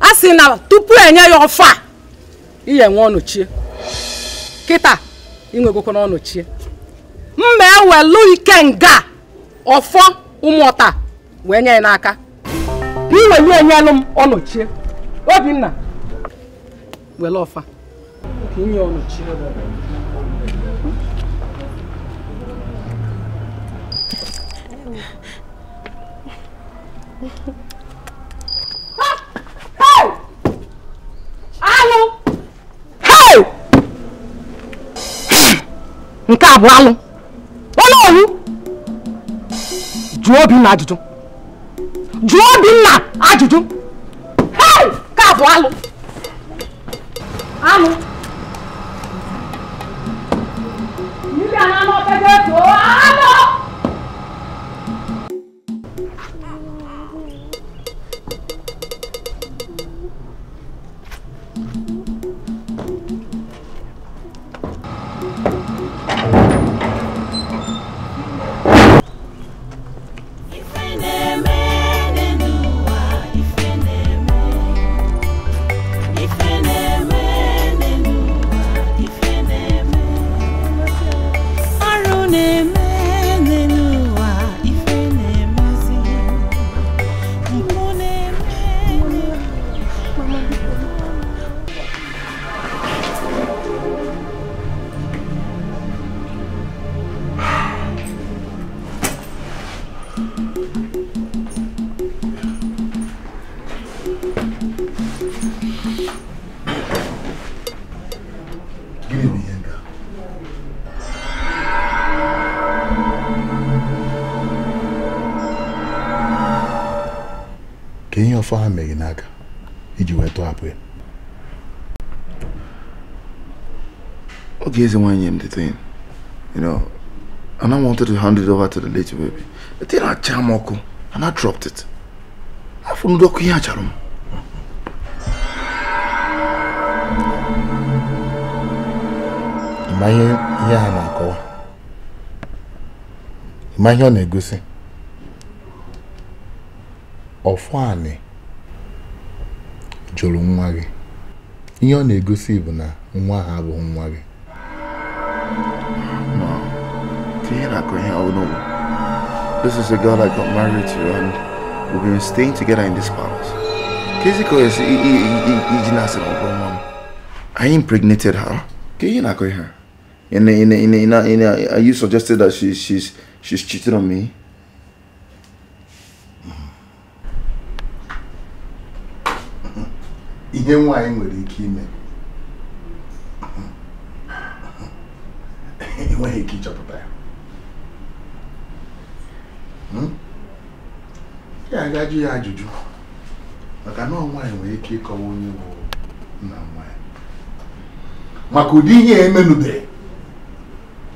a sị na tupu enye ya ọfa ihe iye nwe ọnọchie kịta inwegokwa n'ọnọchie mma ewelu ike nga ọfọ ụmụọta wee nye ya n'aka iwelu enyelụ m ọnọchie obinna were ọfa ka Thank you. alụ nke a bụ alụ onye owu jụọ Obinna ajụjụ jụọ Obinna ajụjụ nke a bụ alụ alụ ndị a na-anọ pete e tụọ ife ha meghị n'aka iji wee tọhapụ ya Okay, is one m the thing. You know, I wanted to hand it over to the lady baby. E the na I m. ọkụ I dropped it. na-akọwa nwa gị ihe ọ na-egosi bụ na nwa ha nwa gị This is the girl I got married to and we've been staying together in this palace. Kiziko is I impregnated her. Are you suggested that she, she's, she's cheating on me? ihe nwaanyị nwere ike ime enweghị ike ịchọpụta ya ya hmm? agajụ ya ajụjụ maka na nwaanyị nwere ike ịkọwa onye bụ nna nwaanyị maka ụdị ihe e a emenubeghị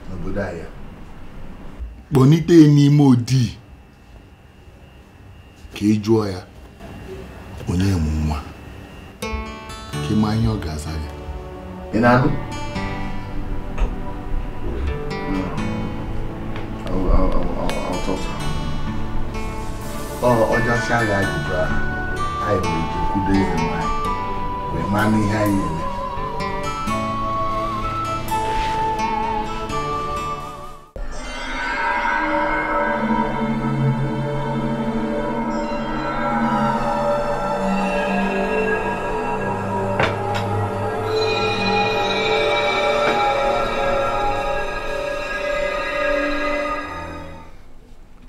n'obodo ahịa kpọnite n'ime odi ka ị e jụọ ya onye mụ nwa kí n máa yín ọ̀gá sáré. ìnáwó. ọjọ́ sáré àjùbá àìmọ̀ ìjòkúdé ìrìnà rẹ̀ máa ní ìhà ìyẹn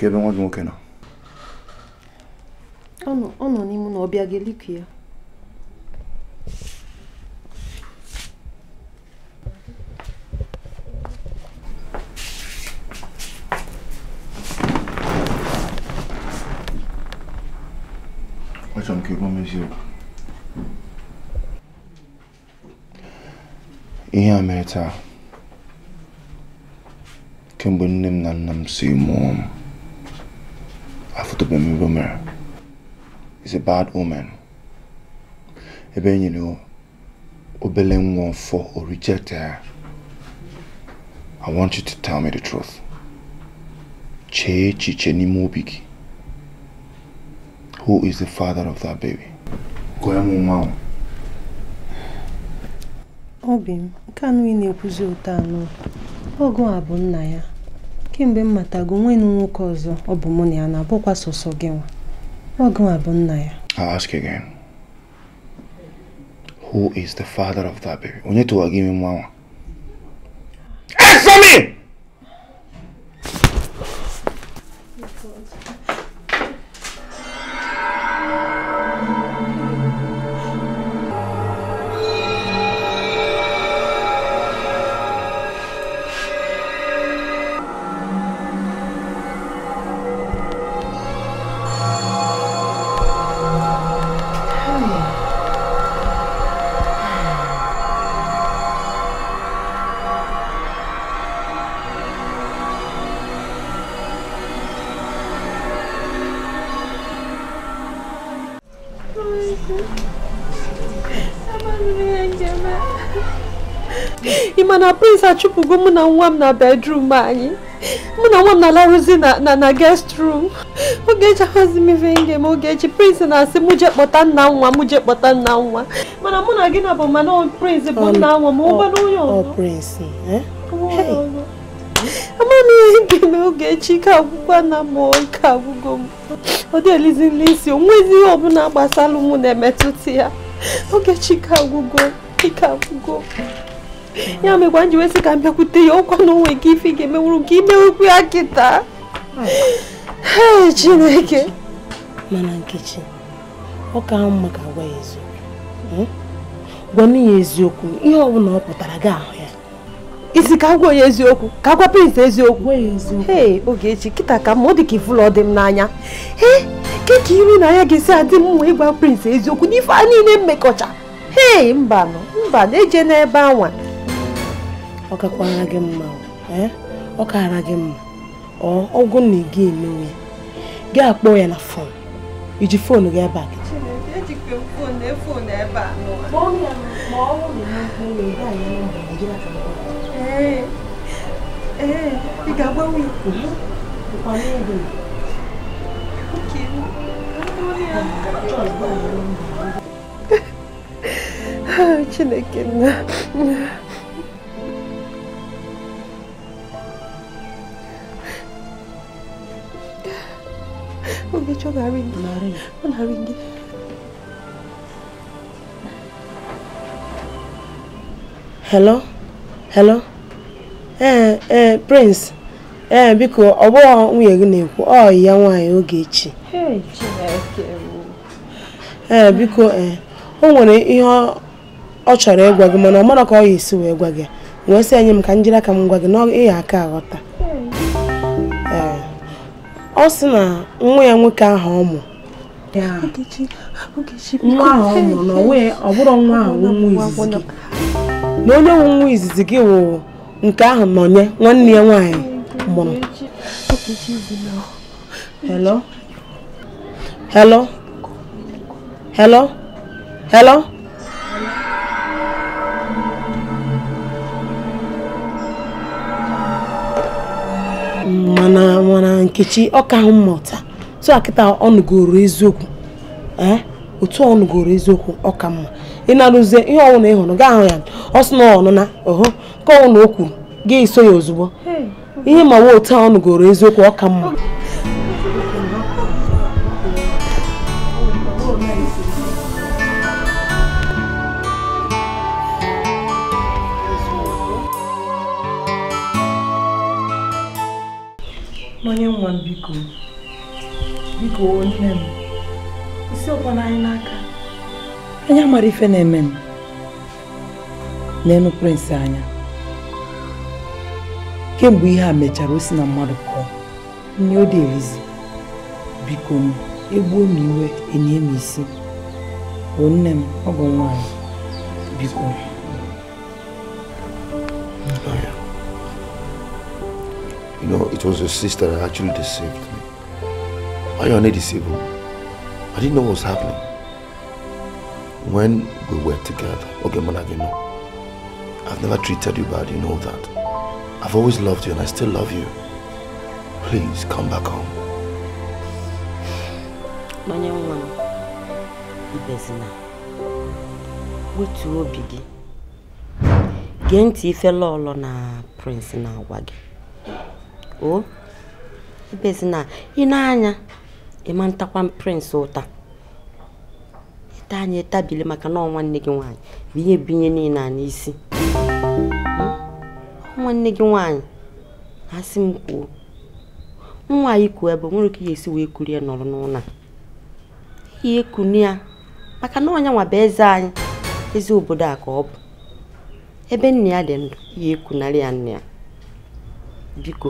ebe nwa gị nwoke nọ ọ nọ n'ime na ọ bịa gị liku ya achọrọ m ka ị m eziokwu ihe a mere taa kemgbe nne m na nna m si mụọ m a bad woman. Ebe you know, obele nwa for or reject her. I want you to tell me the truth. Chee chiche n'ime obi gị. Who is the father of that baby? Gwa ya m nwa ahụ. Obi m, nke anụ na-ekwuzi otu anụ. Ọgụ a bụ nna ya. Kemgbe m matago nwee nwoke ọzọ ọ bụ mụ na ya na sọsọ gị nwa. Welcome Abunaya. I'll ask you again. Who is the father of that baby? need to give gimi one. Answer me! ebugo mụ na nwa m na bedrum anyị mụ na nwa m na-alarụzi na na guest room ogechi ahụzi m ife nge m ogechi prince na-asị mụ jee kpọta nna nwa mụ jee kpọta nna nwa mana mụ na gị na bụ mana prince bụ nna nwa ma ụgbana onye ọ eh? amaghị ihe ga-eme ogechi ka agwụkwa na mmụọ ike agwụgo m ọ dị elizi nle isi o nwezi ihe ọbụla gbasara mụ na-emetụta ya ogechi ka agwụgo ike agwụgo ya mekwa nji wesị ka m kwute ya ọkwa na onwe nke ife ga-emenwuru nke okwu ya kịta chineke mana nkechi ọ ka mma ka gwa ya eziokwu ha ya eziokwu ihe ọ pụtara gị ahụ ya isi ka gwa ya eziokwu ka eziokwu kịta ka mma ọ dị dị m n'anya ee keka iri na ya ga-esi adị m ịgwa prins eziokwu n'ife a niile mmekọcha ee mba na-eje n'ebe anwa ọ kakwara gị mma e? ọ kaara gị mma ọgwụ na gị emewe gị akpọ ya na fon iji fonu gị ebe e Ogechi ọ na-arịngi ọ na hello hello ee eh, ee eh, prince ee eh, biko ọ bụghị nwunye gị na-ekwu ọ ya nwaanyị Ogechi ee biko ee o nwere ihe ọ chọrọ ịgwa gị mana ọ mara ka ọ ya esi wee gwa gị wee sị enye m ka m jiri aka m gwa gị na ị ya aka aghọta ọ sị na nwa ya nwoke ahụ ọ mụ nwa ahụ ọ mụrụ na ọ bụrụ nwa ahụ nwa izizi gị na onye nwe nwa izizi gị wụ nke ahụ nye nwanne ya nwaanyị mụrụ hello hello hello hello mana nkechi ọ ka mma mmụta tụ akịta ọnụgoro eziokwu ee eh? otu ọnụgoro eziokwu ọ ka mma ịnarụzie ihe ọwụna ịhụrụ gaa ahụ ya ọ sị na ọnụna ọhụ ka ọwụna o kwuru gị iso ya ozugbo ihe ma nwe otu ọnụgoro eziokwu ọ ka mma onye nwa m biko biko nne m isi ọkwana anyị n'aka anyị amara ife na-eme m n'elu prịnsị anya kemgbe ihe a mechara o si na mmadụ pụọ nne ọ dị biko m egbuo m iwe enye m isi bụ nne m bụ nwaanyị biko was your sister that actually deceived me. Ayane deceived me. I didn't know what was happening. When we were together, okay, Managino, I've never treated you bad, you know that. I've always loved you and I still love you. Please, come back home. My young man, Ibezina, wetuo bigi. Genti ntị ife lọọlọ na Prince na-agwa gị. o ebezi na ị na-anya ịma prịnsị ụta ịta anya etabili maka na nne gị nwaanyị bụ ihe binye niile a n'isi nne gị nwaanyị asị m kwuo nwa anyị kwuo ebe nwere ike ya esi wee ya nọrọ n'ụlọ ihe e kunu ya maka na ọnya nwa eze anyị eze obodo a ka ọ bụ ebe nna ya dị ndụ ya ekunarị ya nna ya biko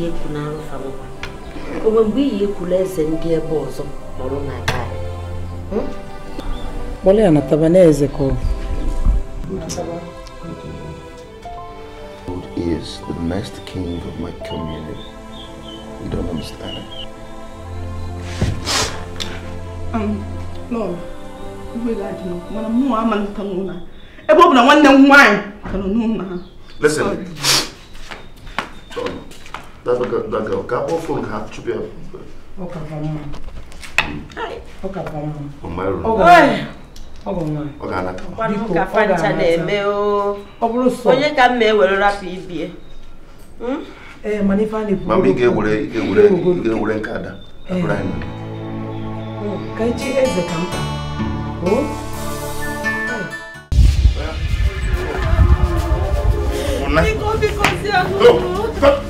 iyi ekwu na alụfanụ onwe mgbe iyi ekwula eze ndị ebe ọzọ nọrọ na aka kpọrọ ya na tabanaeze ka is the next king of my community. You don't understand it. Um, Lord, ebe ọ bụ na nwanne m nwaanyị ka nọ n'ụlọ ha. Listen. Sorry. that girl ka kpọfuo ha chụpụ ya onye ka mma ewere rapụ ibie mama ị ga-ewere nke ada eh. oh, ka echi eze ka mkpa oh. Biko, biko, si ahụ.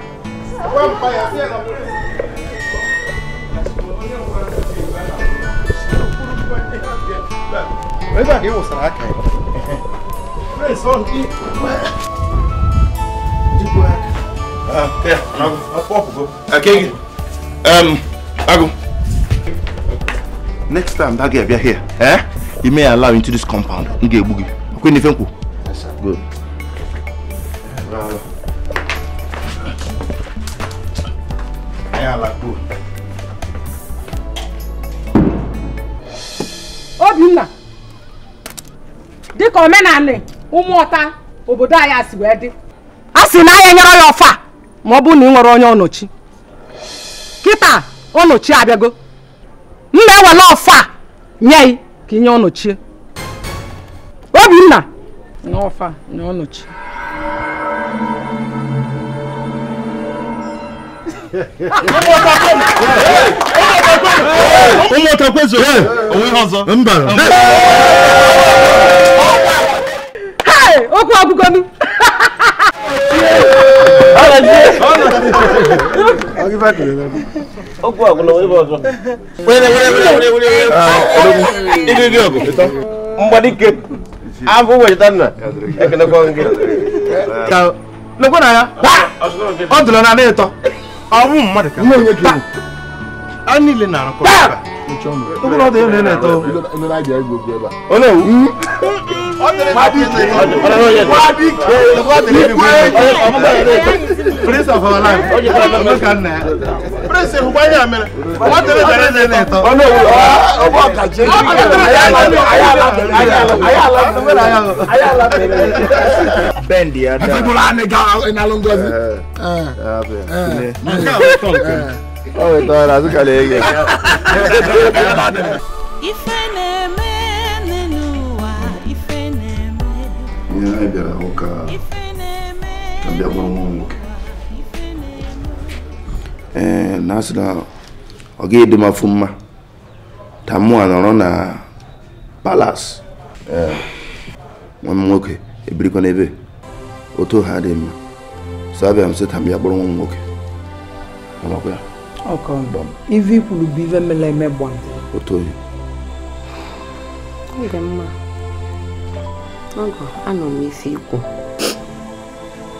Where's that? It was an archive. Where's all the... Uh, yeah, I'll go. Um, I'll go. Next time that girl be here, eh? You may allow into this compound. Nge boogie. Okay, Nifenku. Yes, sir. Good. Bravo. Uh, ala kpọọ obinna dịka omenala ọta obodo anyị asị wee dị a sị na anyị nyere ya ọfa ma ọ bụ na ị nwere onye ọnọchi kịta ọnọchi abịago m na-ewele ọfa nye ya ka inye ọnọchie obinna nye ọfa nye ọnọchi ụmụ ọtakwezo mba okwu agụgonu okwu agụlọ ebe ọzọ ịdịdị ọgụ mgbadike abụ wechita nna ekenekwa gị lekwe na ya ọ dụrụ na na ịtọ ọnwụ mmadụ ka niile na-arakọ Tókùnà tó yẹ ní ilẹ̀ tó. Inú náà jẹ́ gbogbo ẹ̀bà. Ó lè wú. Wádìíkè wádìíkè ìgbé Prince of our life. Ọjọ́ kan nà. Prince ìhùwà yà mẹ́rẹ̀. Wọ́n tẹ̀lé tẹ̀lé ní ilẹ̀ tó. Ó lè wú. Ọmọ ọ̀kà jẹ́ kí ayala tẹ̀lé. Bẹ́ẹ̀ni Adam. Ẹ̀fíkùnrin á ní ga ìnálóńgọ́sí. Ẹ̀ ẹ̀ ẹ̀ ẹ̀ ẹ̀ o wetara azụ ka na na na ihe anyị eh, bịara hụ ka bịa nwa nwoke ee na asị na ọ gaghị dị afụ mma ka mụ a nọrọ na palas nwa m nwoke ebirikwa n'ebe oto ha dị mma so abịa m sị nwoke ọkọndọm ife ikwuru bụ ife mela eme gbam otoyi ọ dị mma ọgọ anọ m isi ikwu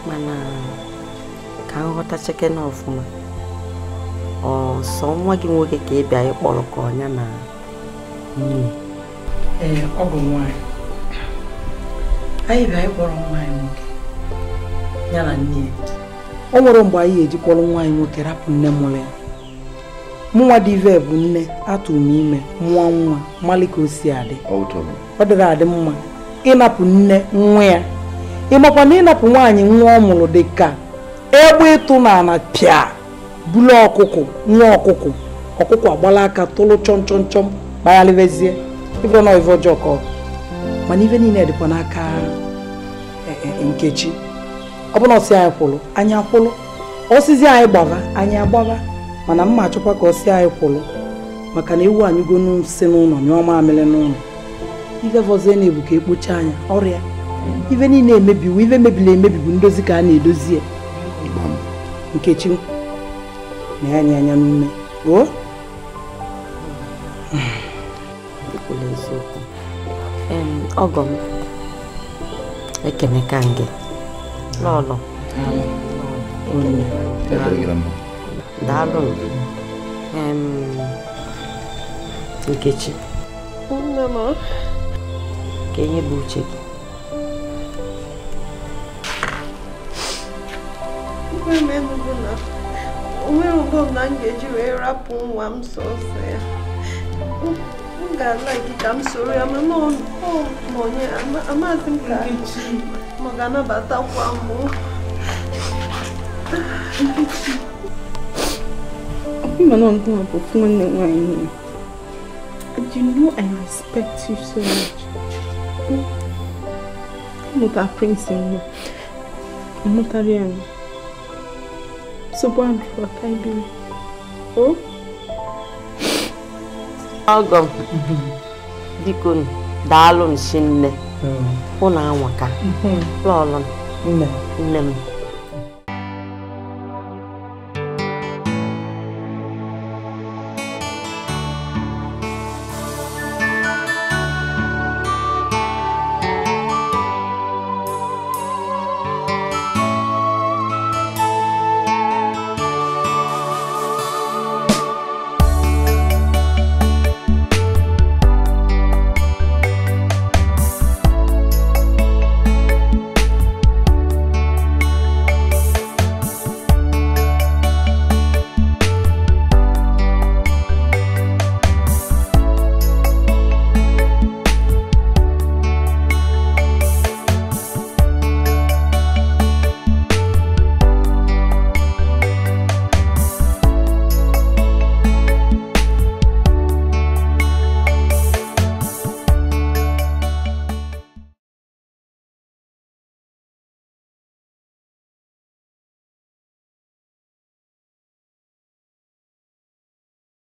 mana ka m ghọta chekena ọfụma ọsọ nwa gị nwoke ka ị bịa ịkpọrọ ka ọnya na nne ee ọ bụ nwanyị anyị bịa ịkpọrọ nwaanyị nwoke ya na nne o nwere mgbe anyị ejikpọrọ nwaanyị nwoke rapụ nne mụrụ ya mụnwa dị ive bụ nne atụrụ m ime mụọ nwa mmalị ka o si adị ọ dịrị adị mma ịnapụ nne nwa ya ịmakwa na ịnapụ nwaanyị nwa ọ mụrụ dị ka egbe ịtụ na ana pịa bulu ọkụkụ nwa ọkụkụ ọkụkụ agbala aka tụrụ chọm chọm chọm na ife nọ ife ọjọọ ka mana ife niile dịkwa n'aka e, e, e, nkechi ọ na ọsị anyị kwụrụ anyị akwụrụ osizi anyị gbava anyị agbava mana mma achọkwa ka ọ si anyị kwụlụ maka na ewu anyụgo si n'ụlọ ọma amịrị n'ụlọ ife vọzie na-ebu ka e anya ọrịa ife niile emebiwo ife mebiri emebi ndozi ka a na-edozi ya nkechi na ya nye anya n'ume oo daalụ nkechi nne ka enye bụ uche gị onwere ụbọm na ụgbọ na nkeji wee rapụ nwa m sọsọ ya m ga-ala gị ka m soro ya ma mana onye amaghịzi m ka ma ọ ga-anabatakwa mụ Even though I'm going to perform anyway. But you know I respect you so much. Hmm? I'm not a prince anymore. I'm not a real. So born before I be. Oh? Welcome. Dikun, daalụ m si nne. Ụnụ hmm. anwaka. Mm hmm. Nne m.